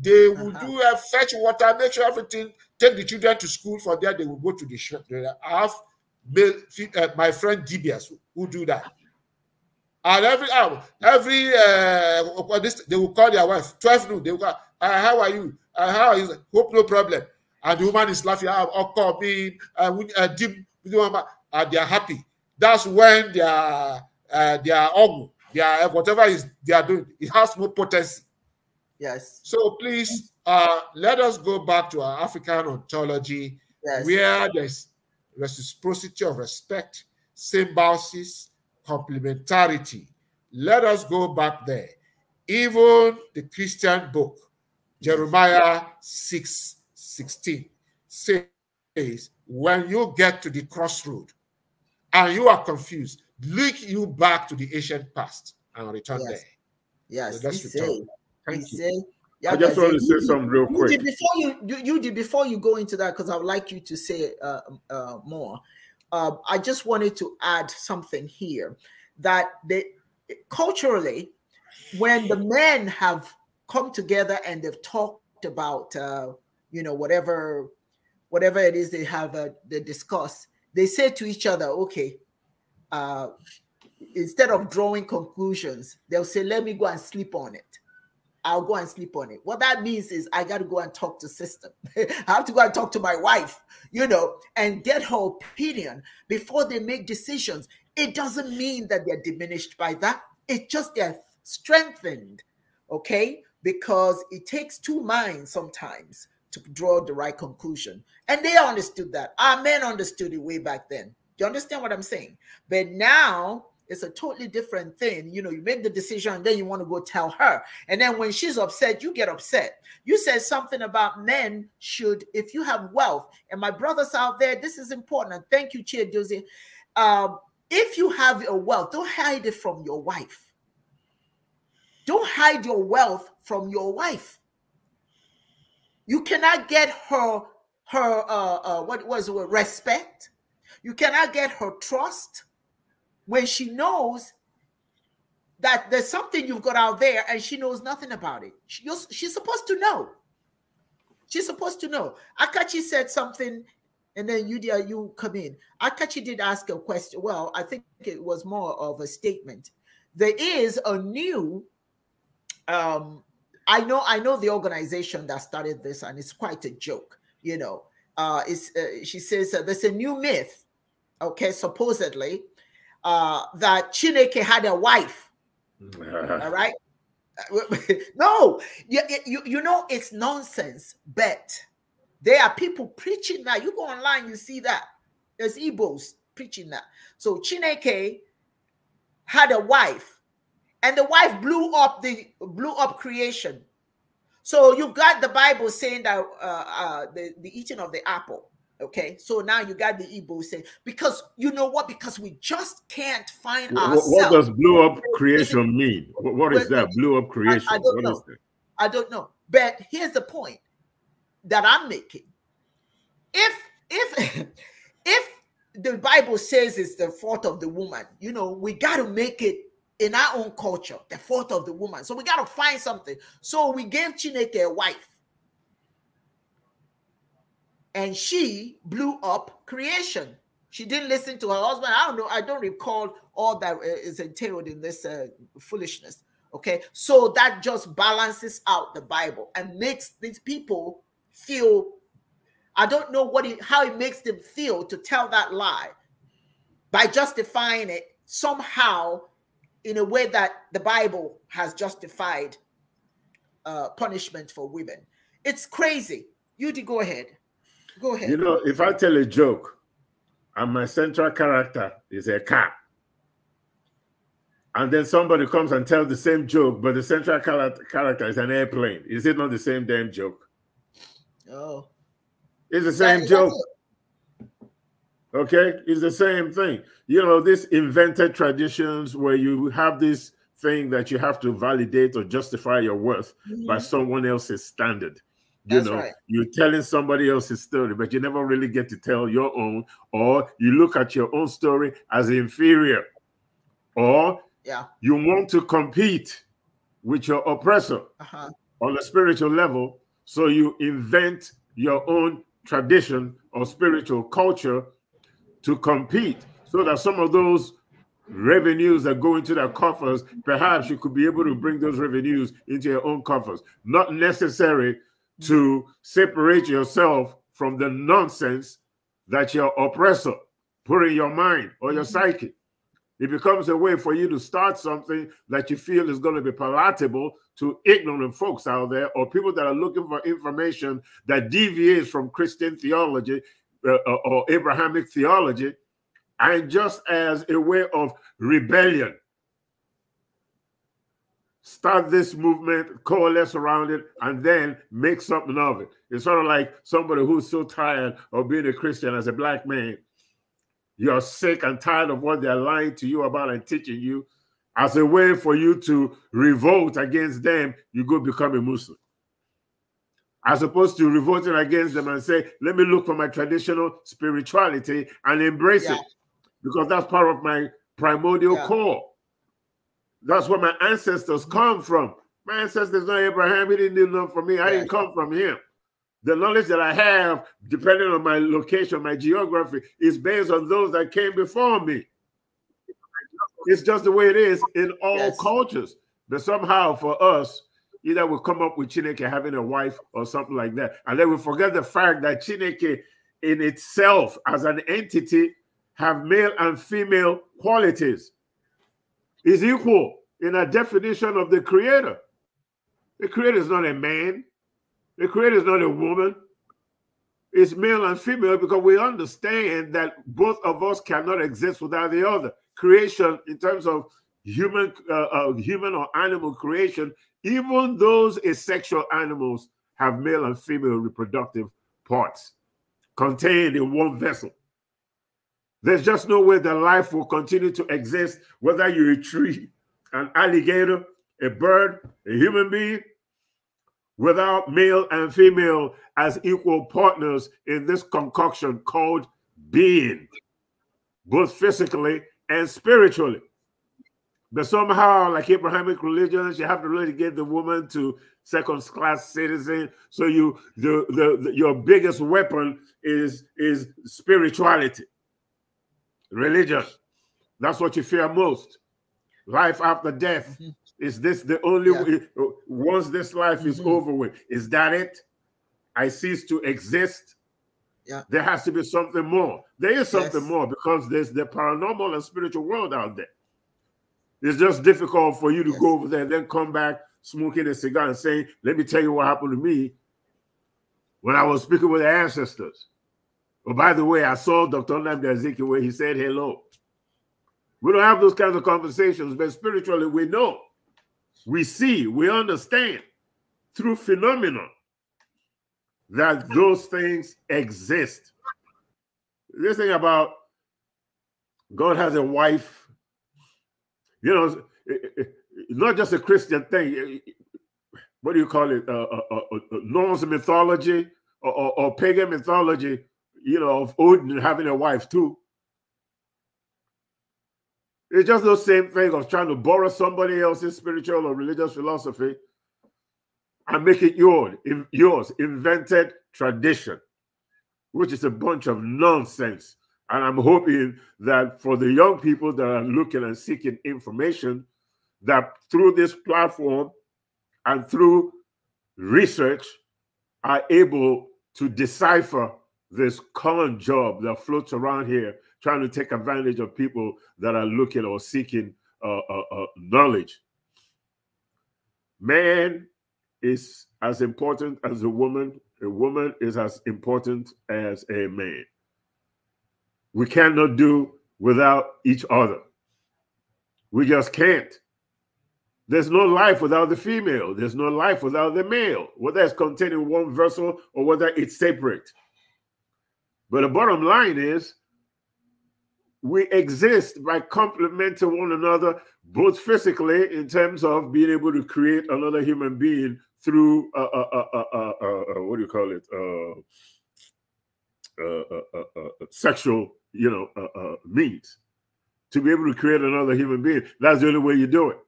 they will uh -huh. do a fetch water, make sure everything, take the children to school. For that, they will go to the shrine. I have male, uh, my friend DBS who do that. And every hour, ah, every uh, this, they will call their wife. 12 noon, they will call, uh, how are you? Uh, how Hope no problem. And the woman is laughing. I'll call me. Uh, uh, dim, and they are happy. That's when They uh, eh, their They are. Eh, whatever is they are doing, it has more potency. Yes. So please, uh, let us go back to our African ontology, yes. where there's reciprocity of respect, symbiosis, complementarity. Let us go back there. Even the Christian book, Jeremiah 6 16, says, When you get to the crossroad and you are confused, look you back to the ancient past and return yes. there. Yes, so that's Thank he you. yeah, I just want to say something real quick. You before you, you, you did before you go into that, because I would like you to say uh, uh, more uh, I just wanted to add something here that they culturally, when the men have come together and they've talked about uh, you know whatever whatever it is they have uh, they discuss, they say to each other, okay. Uh, instead of drawing conclusions, they'll say, "Let me go and sleep on it." I'll go and sleep on it. What that means is I got to go and talk to system. [LAUGHS] I have to go and talk to my wife, you know, and get her opinion before they make decisions. It doesn't mean that they're diminished by that. It's just they're strengthened, okay? Because it takes two minds sometimes to draw the right conclusion. And they understood that. Our men understood it way back then. Do you understand what I'm saying? But now it's a totally different thing. You know, you make the decision, then you want to go tell her. And then when she's upset, you get upset. You said something about men should, if you have wealth, and my brothers out there, this is important. And thank you, Chair Dozie. Um, if you have your wealth, don't hide it from your wife. Don't hide your wealth from your wife. You cannot get her her uh, uh what was it respect. You cannot get her trust when she knows that there's something you've got out there and she knows nothing about it. She, she's supposed to know. She's supposed to know. Akachi said something and then Yudia, you come in. Akachi did ask a question. Well, I think it was more of a statement. There is a new um I know I know the organization that started this and it's quite a joke, you know. Uh, it's, uh, she says there's a new myth, okay, supposedly, uh, that Chineke had a wife. All right. [LAUGHS] no, you, you, you know, it's nonsense, but there are people preaching that. You go online, you see that. There's Igbos preaching that. So Chineke had a wife, and the wife blew up the blew up creation. So you've got the Bible saying that uh, uh, the, the eating of the apple Okay, so now you got the Igbo say because you know what? Because we just can't find what, ourselves. What does blow up creation mean? What is that? Blow up creation. I, I don't what know. I don't know. But here's the point that I'm making. If if [LAUGHS] if the Bible says it's the fault of the woman, you know, we got to make it in our own culture, the fault of the woman. So we got to find something. So we gave Chineke a wife and she blew up creation. She didn't listen to her husband. I don't know. I don't recall all that uh, is entailed in this uh, foolishness. Okay. So that just balances out the Bible and makes these people feel. I don't know what it, how it makes them feel to tell that lie by justifying it somehow in a way that the Bible has justified uh, punishment for women. It's crazy. You go ahead. Go ahead. You know, if I tell a joke and my central character is a cat, and then somebody comes and tells the same joke, but the central character is an airplane, is it not the same damn joke? Oh. It's the same joke. Okay, it's the same thing. You know, these invented traditions where you have this thing that you have to validate or justify your worth mm -hmm. by mm-hmm. someone else's standard. You know, right. you're telling somebody else's story, but you never really get to tell your own, or you look at your own story as inferior, or yeah, you want to compete with your oppressor uh -huh. on a spiritual level, so you invent your own tradition or spiritual culture to compete, so that some of those revenues that go into their coffers, perhaps you could be able to bring those revenues into your own coffers. Not necessary to separate yourself from the nonsense that your oppressor put in your mind or your mm -hmm. psyche. It becomes a way for you to start something that you feel is going to be palatable to ignorant folks out there or people that are looking for information that deviates from Christian theology uh, uh or Abrahamic theology, and just as a way of rebellion start this movement, coalesce around it, and then make something of it. It's sort of like somebody who's so tired of being a Christian as a black man. You're sick and tired of what they're lying to you about and teaching you. As a way for you to revolt against them, you go become a Muslim. As opposed to revolting against them and say, let me look for my traditional spirituality and embrace yeah. it. Because that's part of my primordial yeah. core. That's where my ancestors come from. My ancestors not Abraham. He didn't do nothing for me. I didn't come from him. The knowledge that I have, depending on my location, my geography, is based on those that came before me. It's just the way it is in all yes. cultures. But somehow for us, either we come up with Chineke having a wife or something like that. And then we forget the fact that Chineke in itself as an entity have male and female qualities is equal in a definition of the creator. The creator is not a man, the creator is not a woman. It's male and female because we understand that both of us cannot exist without the other. Creation, in terms of human, uh, uh, human or animal creation, even those asexual animals have male and female reproductive parts contained in one vessel. There's just no way that life will continue to exist, whether you're a tree, an alligator, a bird, a human being, without male and female as equal partners in this concoction called being, both physically and spiritually. But somehow, like Abrahamic religions, you have to really get the woman to second class citizen. So you the, the, the your biggest weapon is is spirituality religious. That's what you fear most. Life after death. Mm -hmm. Is this the only yeah. way? Once this life mm -hmm. is mm-hmm. over with, is that it? I cease to exist. Yeah. There has to be something more. There is something yes. more because there's the paranormal and spiritual world out there. It's just difficult for you to yes. go over there and then come back smoking a cigar and saying, Let me tell you what happened to me when I was speaking with the ancestors. Oh, by the way, I saw Dr. Nnamdi Azikiwe where he said hello. We don't have those kinds of conversations, but spiritually we know, we see, we understand through phenomena that those things exist. This thing about God has a wife, you know, not just a Christian thing. What do you call it? Uh, uh, uh Norse mythology or, or, or pagan mythology you know, of Odin having a wife too. It's just the same thing of trying to borrow somebody else's spiritual or religious philosophy and make it your, yours invented tradition, which is a bunch of nonsense. And I'm hoping that for the young people that are looking and seeking information, that through this platform and through research are able to decipher this common job that floats around here trying to take advantage of people that are looking or seeking uh, uh, uh, knowledge. Man is as important as a woman, a woman is as important as a man. We cannot do without each other. We just can't. There's no life without the female. There's no life without the male, whether it's contained in one vessel or whether it's separate. But the bottom line is we exist by complementing one another, both physically in terms of being able to create another human being through uh, uh, uh, what do you call it? sexual, you know, means to be able to create another human being. That's the only way you do it.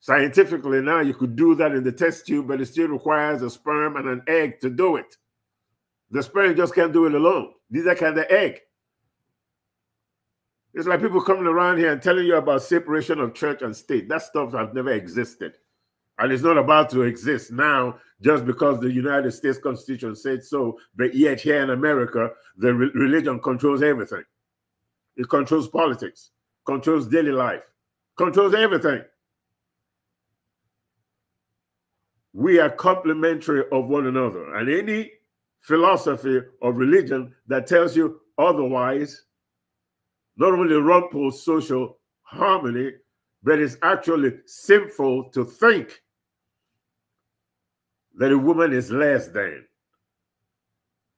Scientifically, now you could do that in the test tube, but it still requires a sperm and an egg to do it. The sperm just can't do it alone. These are kind of egg. It's like people coming around here and telling you about separation of church and state. That stuff has never existed. And it's not about to exist now just because the United States Constitution said so. But yet, here in America, the re religion controls everything. It controls politics, controls daily life, controls everything. We are complementary of one another. And any philosophy of religion that tells you otherwise not only rumples social harmony, but it's actually sinful to think that a woman is less than.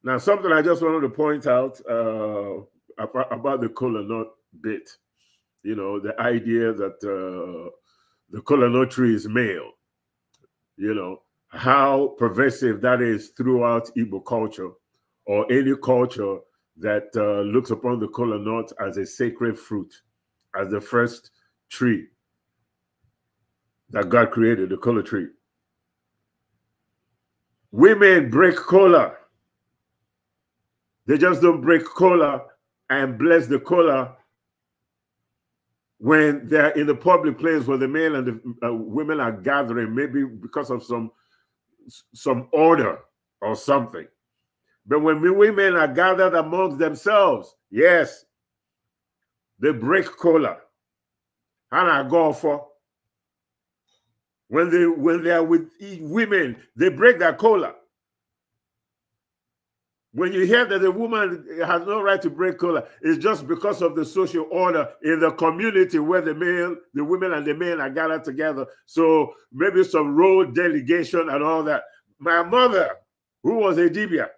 Now, something I just wanted to point out uh, about, the color nut bit, you know, the idea that uh, the color nut tree is male, you know, how pervasive that is throughout Igbo culture or any culture that uh, looks upon the kola nut as a sacred fruit, as the first tree that God created, the kola tree. Women break kola. They just don't break kola and bless the kola when they're in the public place where the men and the uh, women are gathering, maybe because of some some order or something. But when women are gathered amongst themselves, yes, they break cola. And I go for when they when they are with women, they break their cola. When you hear that a woman has no right to break color, it's just because of the social order in the community where the male, the women and the men are gathered together. So maybe some role delegation and all that. My mother, who was a Dibia,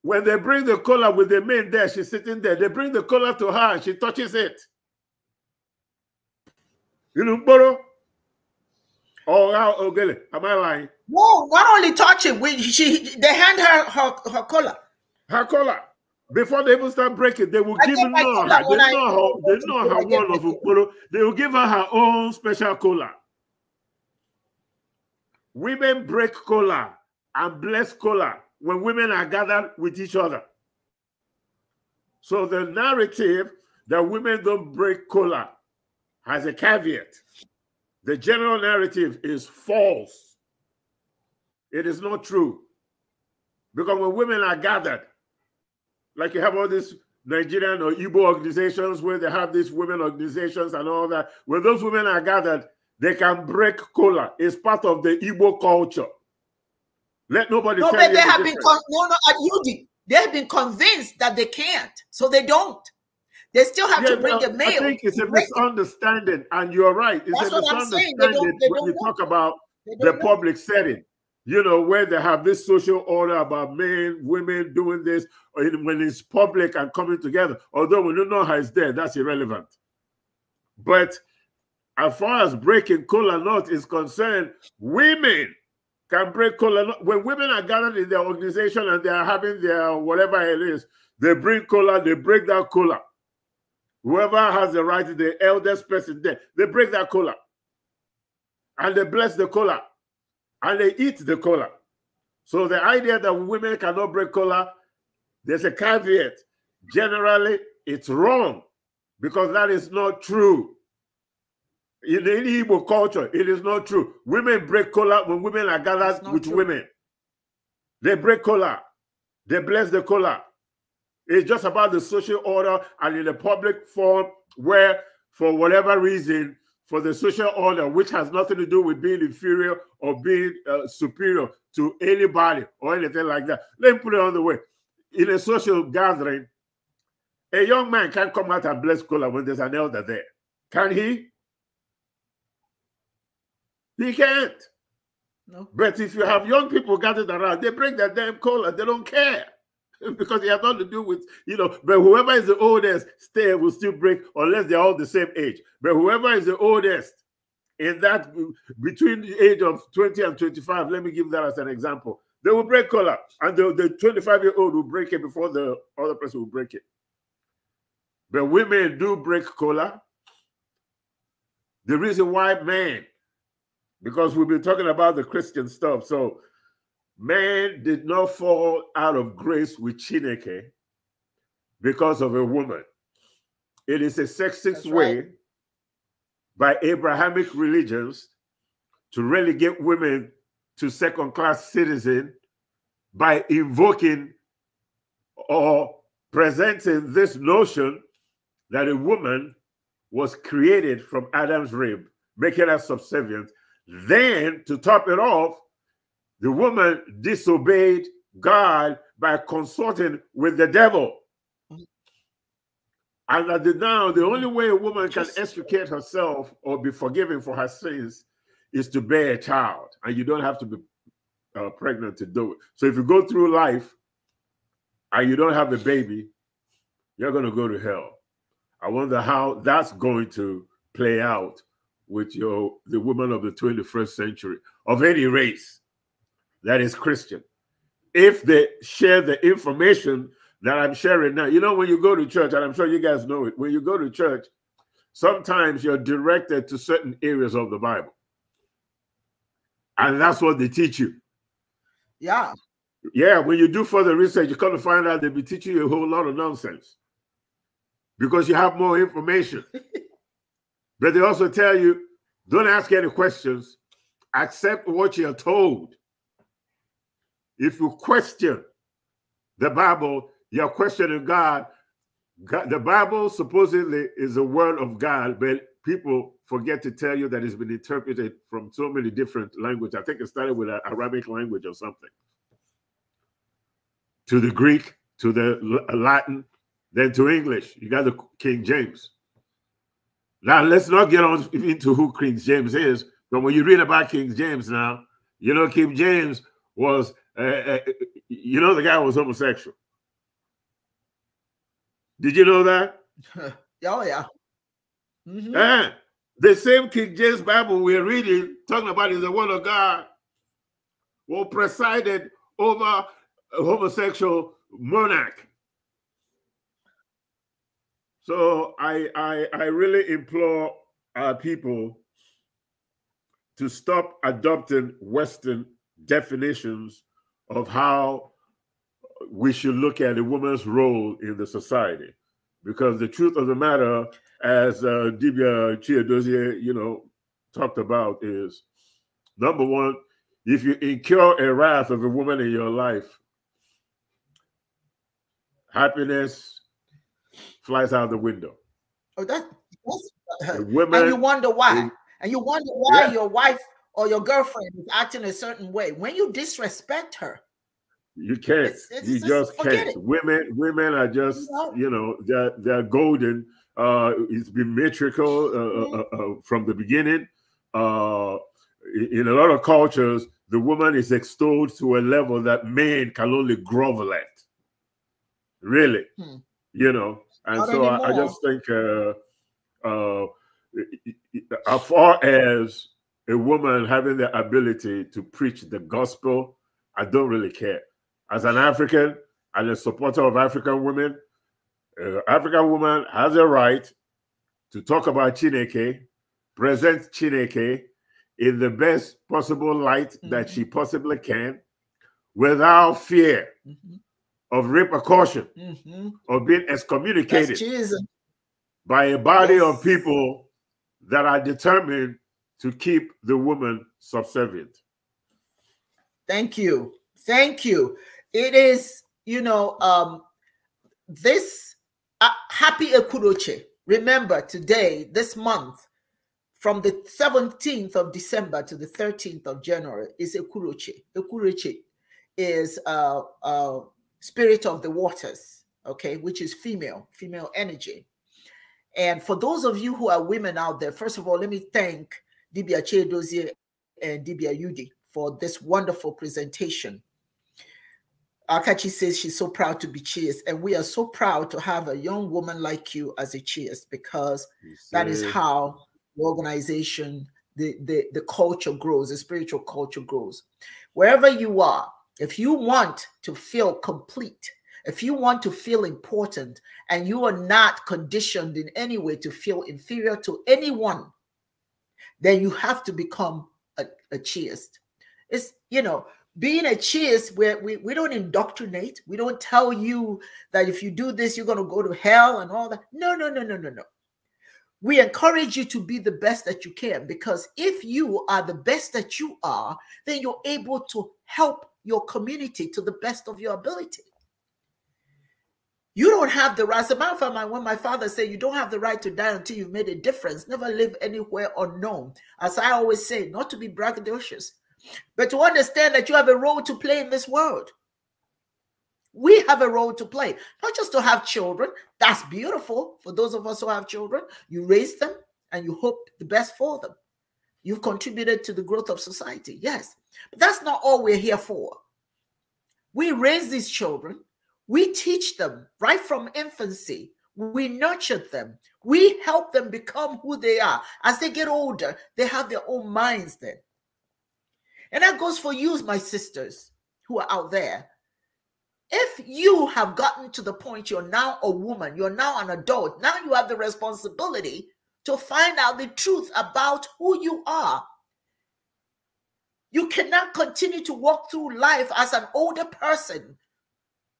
when they bring the collar with the men there, she's sitting there. They bring the collar to her and she touches it. You know, borrow. Oh, oh, really? Oh, am I lying? No, not only touch it. We, she, they hand her her, her collar. Her collar. Before they even start breaking, they will I give her. They know her. They know her, they know her one of They will give her her own special collar. Women break collar and bless collar when women are gathered with each other. So the narrative that women don't break collar has a caveat. The general narrative is false. It is not true. Because when women are gathered, like you have all these Nigerian or Igbo organizations where they have these women organizations and all that, when those women are gathered, they can break cola. It's part of the Igbo culture. Let nobody no, but they the have difference. been no, no, at they have been convinced that they can't, so they don't. They still have yeah, to bring the mail. I think it's a misunderstanding, and you're right. It's That's a misunderstanding they don't, they don't when you talk about the know. public setting. You know, where they have this social order about men, women doing this, or when it's public and coming together. Although when you know how it's there, that's irrelevant. But as far as breaking cola not is concerned, women can break cola When women are gathered in their organization and they are having their whatever it is, they bring cola, they break that cola. Whoever has the right, the eldest person there, they break that cola. And they bless the cola. And they eat the cola. So the idea that women cannot break cola, there's a caveat. Generally, it's wrong because that is not true. In any Igbo culture, it is not true. Women break cola when women are gathered with true. women. They break cola. They bless the cola. It's just about the social order and in a public forum where, for whatever reason, for the social order, which has nothing to do with being inferior or being uh, superior to anybody or anything like that. Let me put it another way. In a social gathering, a young man can't come out and bless cola when there's an elder there. Can he? He can't. No. But if you have young people gathered around, they bring their damn cola. They don't care. [LAUGHS] because it has nothing to do with you know but whoever is the oldest stay will still break unless they're all the same age but whoever is the oldest in that between the age of 20 and 25 let me give that as an example they will break color, and the, the 25 year old will break it before the other person will break it but women do break color. the reason why men because we've been talking about the christian stuff so Man did not fall out of grace with Chineke because of a woman. It is a sexist way by Abrahamic religions to relegate women to second class citizen by invoking or presenting this notion that a woman was created from Adam's rib, making her subservient. Then to top it off, the woman disobeyed God by consulting with the devil. And at the now, the only way a woman can extricate herself or be forgiven for her sins is to bear a child. And you don't have to be uh, pregnant to do it. So if you go through life and you don't have a baby, you're going to go to hell. I wonder how that's going to play out with your the women of the 21st century of any race that is Christian if they share the information that I'm sharing now. You know, when you go to church, and I'm sure you guys know it, when you go to church, sometimes you're directed to certain areas of the Bible. And that's what they teach you. Yeah. Yeah, when you do further research, you come to find out they'll be teaching you a whole lot of nonsense because you have more information. [LAUGHS] but they also tell you don't ask any questions, accept what you're told. If you question the Bible, you're questioning God. God. The Bible supposedly is the word of God, but people forget to tell you that it's been interpreted from so many different languages. I think it started with an Arabic language or something, to the Greek, to the Latin, then to English. You got the King James. Now, let's not get on into who King James is, but when you read about King James now, you know, King James was uh, you know, the guy was homosexual. Did you know that? [LAUGHS] oh, yeah. Mm -hmm. And the same King James Bible we're reading, talking about is the word of God, who presided over a homosexual monarch. So I, I, I really implore our people to stop adopting Western definitions of how we should look at a woman's role in the society. Because the truth of the matter, as uh, Dibia you know, talked about is, number one, if you incur a wrath of a woman in your life, happiness flies out the window. Oh, that, that's, that's and you wonder why. and you wonder why yeah. your wife or your girlfriend is acting a certain way, when you disrespect her, you can't. It's, it's, you it's, just can't. It. Women, women are just you know, you know they're they're golden. Uh, it's been metrical uh, uh mm-hmm. Uh, uh, from the beginning. Uh, in a lot of cultures, the woman is extolled to a level that men can only grovel at. Really, hmm. you know, and Not so I, I, just think, uh, uh, as far as a woman having the ability to preach the gospel, I don't really care. As an African and a supporter of African women, uh, African woman has a right to talk about Chineke, present Chineke in the best possible light mm -hmm. that mm-hmm. she possibly can without fear mm -hmm. of repercussion, mm -hmm. of being excommunicated by a body yes. of people that are determined to keep the woman subservient. Thank you. Thank you. It is, you know, um, this uh, happy Ekuroche. Remember, today, this month, from the 17th of December to the 13th of January, is Ekuroche. Ekuroche is uh, uh, spirit of the waters, okay, which is female, female energy. And for those of you who are women out there, first of all, let me thank Dibia Chedozie and Dibia Yudi for this wonderful presentation. Akachi says she's so proud to be cheers, and we are so proud to have a young woman like you as a cheers because that is how the organization, the, the, the culture grows, the spiritual culture grows. Wherever you are, if you want to feel complete, if you want to feel important, and you are not conditioned in any way to feel inferior to anyone, then you have to become a, a chiist. It's, you know, being a chiist, where we, we don't indoctrinate, we don't tell you that if you do this, you're going to go to hell and all that. No, no, no, no, no, no. We encourage you to be the best that you can because if you are the best that you are, then you're able to help your community to the best of your ability. You don't have the right. As a matter of fact, when my father said, You don't have the right to die until you've made a difference, never live anywhere unknown. As I always say, not to be braggadocious, but to understand that you have a role to play in this world. We have a role to play, not just to have children. That's beautiful for those of us who have children. You raise them and you hope the best for them. You've contributed to the growth of society, yes. But that's not all we're here for. We raise these children we teach them right from infancy. We nurture them. We help them become who they are. As they get older, they have their own minds then. And that goes for you, my sisters who are out there. If you have gotten to the point you're now a woman, you're now an adult, now you have the responsibility to find out the truth about who you are. You cannot continue to walk through life as an older person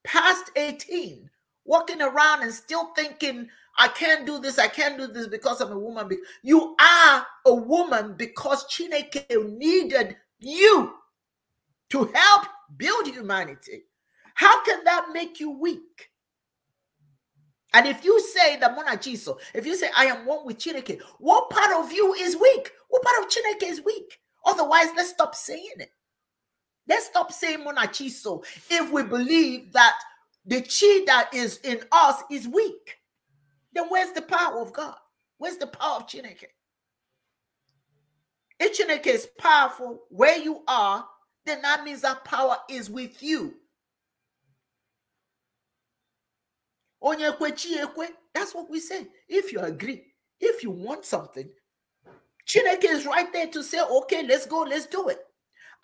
past 18, walking around and still thinking, I can't do this, I can't do this because I'm a woman. You are a woman because Chineke needed you to help build humanity. How can that make you weak? And if you say the monachiso, if you say I am one with Chineke, what part of you is weak? What part of Chineke is weak? Otherwise, let's stop saying it. Let's stop saying monachiso if we believe that the chi that is in us is weak. Then where's the power of God? Where's the power of Chineke? If Chineke is powerful where you are, then that means that power is with you. That's what we say. If you agree, if you want something, Chineke is right there to say, okay, let's go, let's do it.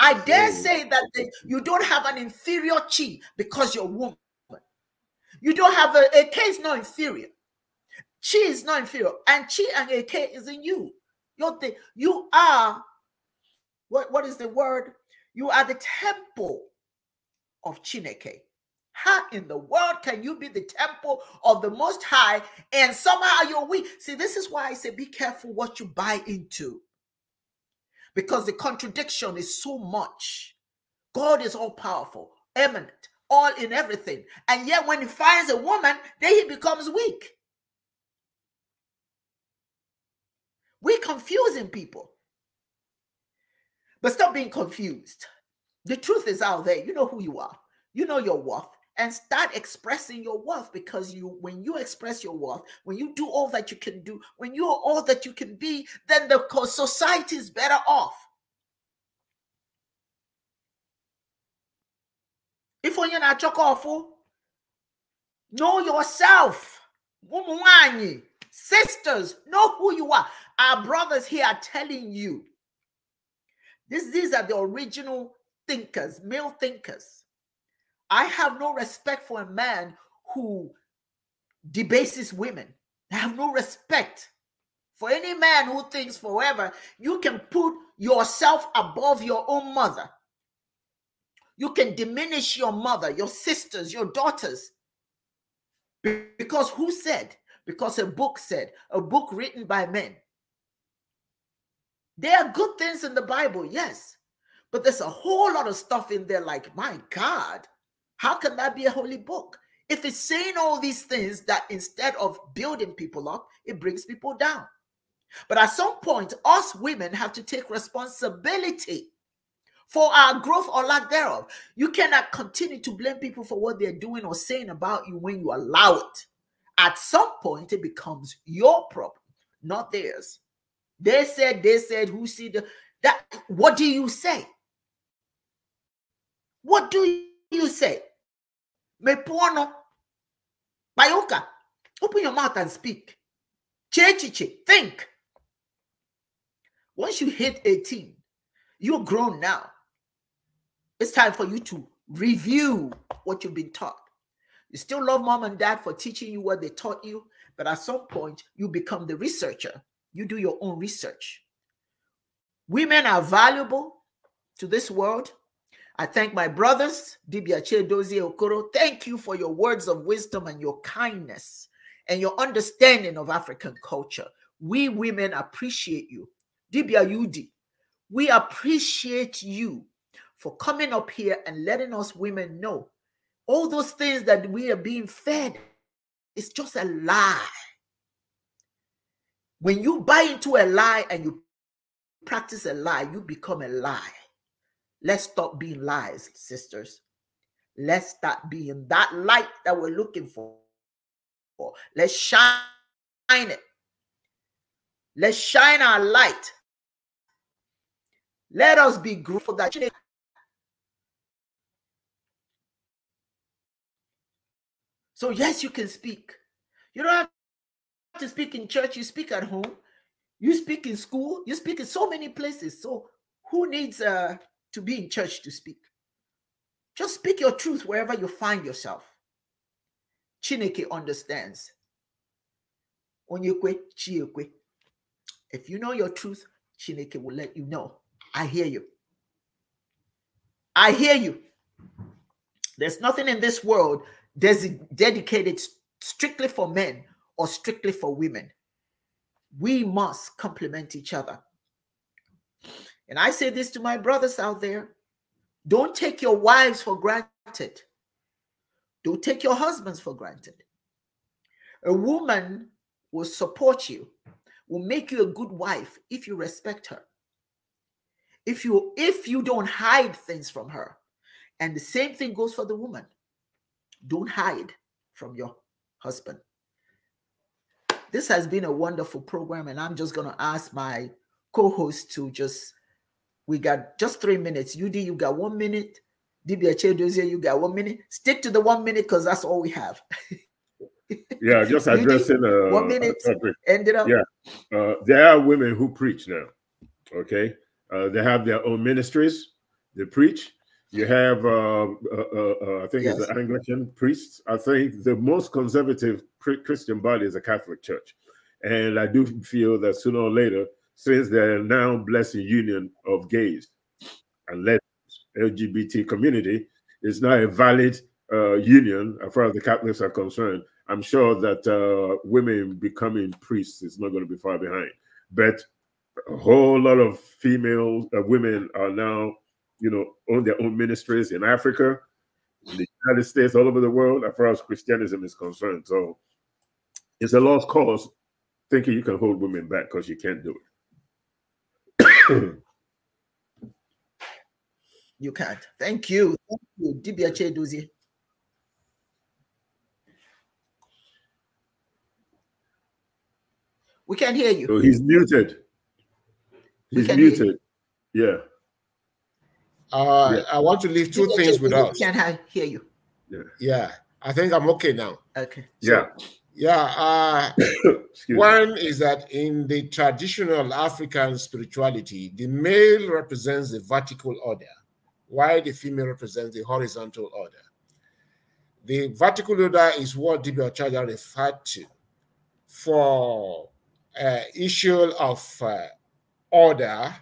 I dare mm. say that the, you don't have an inferior chi because you're woman. You don't have a, a K is not inferior. Chi is not inferior. And chi and a K is in you. You're the, you are, what, what is the word? You are the temple of Chineke. How in the world can you be the temple of the Most High and somehow you're weak? See, this is why I say be careful what you buy into because the contradiction is so much. God is all powerful, eminent, all in everything. And yet, when he finds a woman, then he becomes weak. We're confusing people. But stop being confused. The truth is out there. You know who you are, you know your worth, and start expressing your worth because you when you express your worth when you do all that you can do when you're all that you can be then the society is better off if you're not chocolate know yourself sisters know who you are our brothers here are telling you this, these are the original thinkers male thinkers I have no respect for a man who debases women. I have no respect for any man who thinks forever you can put yourself above your own mother. You can diminish your mother, your sisters, your daughters. Because who said? Because a book said, a book written by men. There are good things in the Bible, yes, but there's a whole lot of stuff in there like, my God, how can that be a holy book? If it's saying all these things that instead of building people up, it brings people down. But at some point, us women have to take responsibility for our growth or lack thereof. You cannot continue to blame people for what they're doing or saying about you when you allow it. At some point, it becomes your problem, not theirs. They said, they said, who see that what do you say? What do you say? Mepuono. Bayoka. Open your mouth and speak. Chechiche. Think. Once you hit 18, you're grown now. It's time for you to review what you've been taught. You still love mom and dad for teaching you what they taught you, but at some point, you become the researcher. You do your own research. Women are valuable to this world I thank my brothers, Dibiache Dozie Okoro. Thank you for your words of wisdom and your kindness and your understanding of African culture. We women appreciate you. Dibia Yudi. we appreciate you for coming up here and letting us women know all those things that we are being fed is just a lie. When you buy into a lie and you practice a lie, you become a lie. Let's stop being lies, sisters. Let's stop being that light that we're looking for. Let's shine it. Let's shine our light. Let us be grateful that So, yes, you can speak. You don't have to speak in church, you speak at home, you speak in school, you speak in so many places. So, who needs a to be in church to speak. Just speak your truth wherever you find yourself. Chineke understands. If you know your truth, Chineke will let you know. I hear you. I hear you. There's nothing in this world dedicated strictly for men or strictly for women. We must complement each other. And I say this to my brothers out there don't take your wives for granted, don't take your husbands for granted. A woman will support you, will make you a good wife if you respect her. If you if you don't hide things from her. And the same thing goes for the woman. Don't hide from your husband. This has been a wonderful program and I'm just going to ask my co-host to just we got just three minutes. UD, you got one minute. DBH Dozier, you got one minute. Stick to the one minute because that's all we have. [LAUGHS] yeah, just addressing uh, one minute. Uh, ended up. Yeah, uh, there are women who preach now. Okay, uh, they have their own ministries. They preach. You have, uh, uh, uh, uh I think yes. it's the Anglican priests. I think the most conservative Christian body is a Catholic Church, and I do feel that sooner or later since the now blessing union of gays and lesbians, LGBT community is now a valid uh, union as far as the Catholics are concerned. I'm sure that uh, women becoming priests is not going to be far behind. But a whole lot of female uh, women are now, you know, on their own ministries in Africa, in the United States, all over the world, as far as Christianism is concerned. So it's a lost cause thinking you can hold women back because you can't do it you can't. Thank you. Thank you, D B H Cheduzi. We can't hear you. So he's muted. He's muted. Yeah. Uh, yeah. I want to leave two things with us. Can't hear you. Yeah. yeah. I think I'm okay now. Okay. So, yeah. Yeah. Uh, [COUGHS] one is that in the traditional African spirituality, the male represents the vertical order, while the female represents the horizontal order. The vertical order is what Dibia Ochaja referred to for uh, issue of uh, order,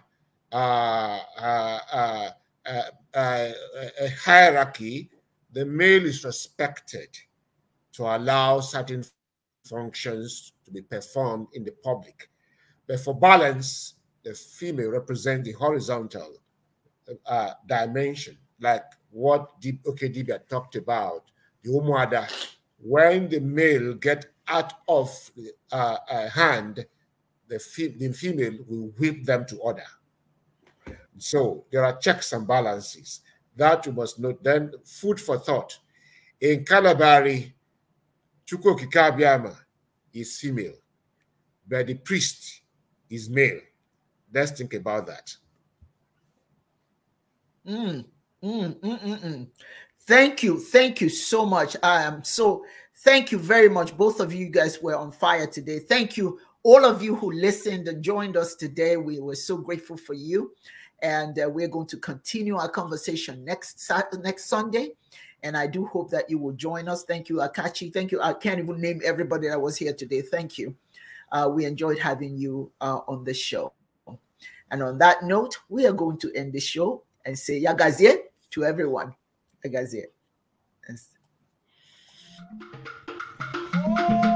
uh, uh, uh, uh a hierarchy, the male is respected to allow certain functions to be performed in the public. But for balance, the female represents the horizontal uh, dimension, like what Okedibia talked about, the Umuada. When the male get out of uh, uh, hand, the, fe the female will whip them to order. So there are checks and balances that you must note. Then food for thought. In Calabari, Chukwokikabiyama is female, but the priest is male. Let's think about that. Mm mm, mm, mm, mm, thank you. Thank you so much. I am so thank you very much. Both of you guys were on fire today. Thank you, all of you who listened and joined us today. We were so grateful for you. And uh, we're going to continue our conversation next next Sunday. And I do hope that you will join us. Thank you, Akachi. Thank you. I can't even name everybody that was here today. Thank you. Uh, we enjoyed having you uh, on the show. And on that note, we are going to end the show and say Yagazie to everyone. Yagazie. Yes.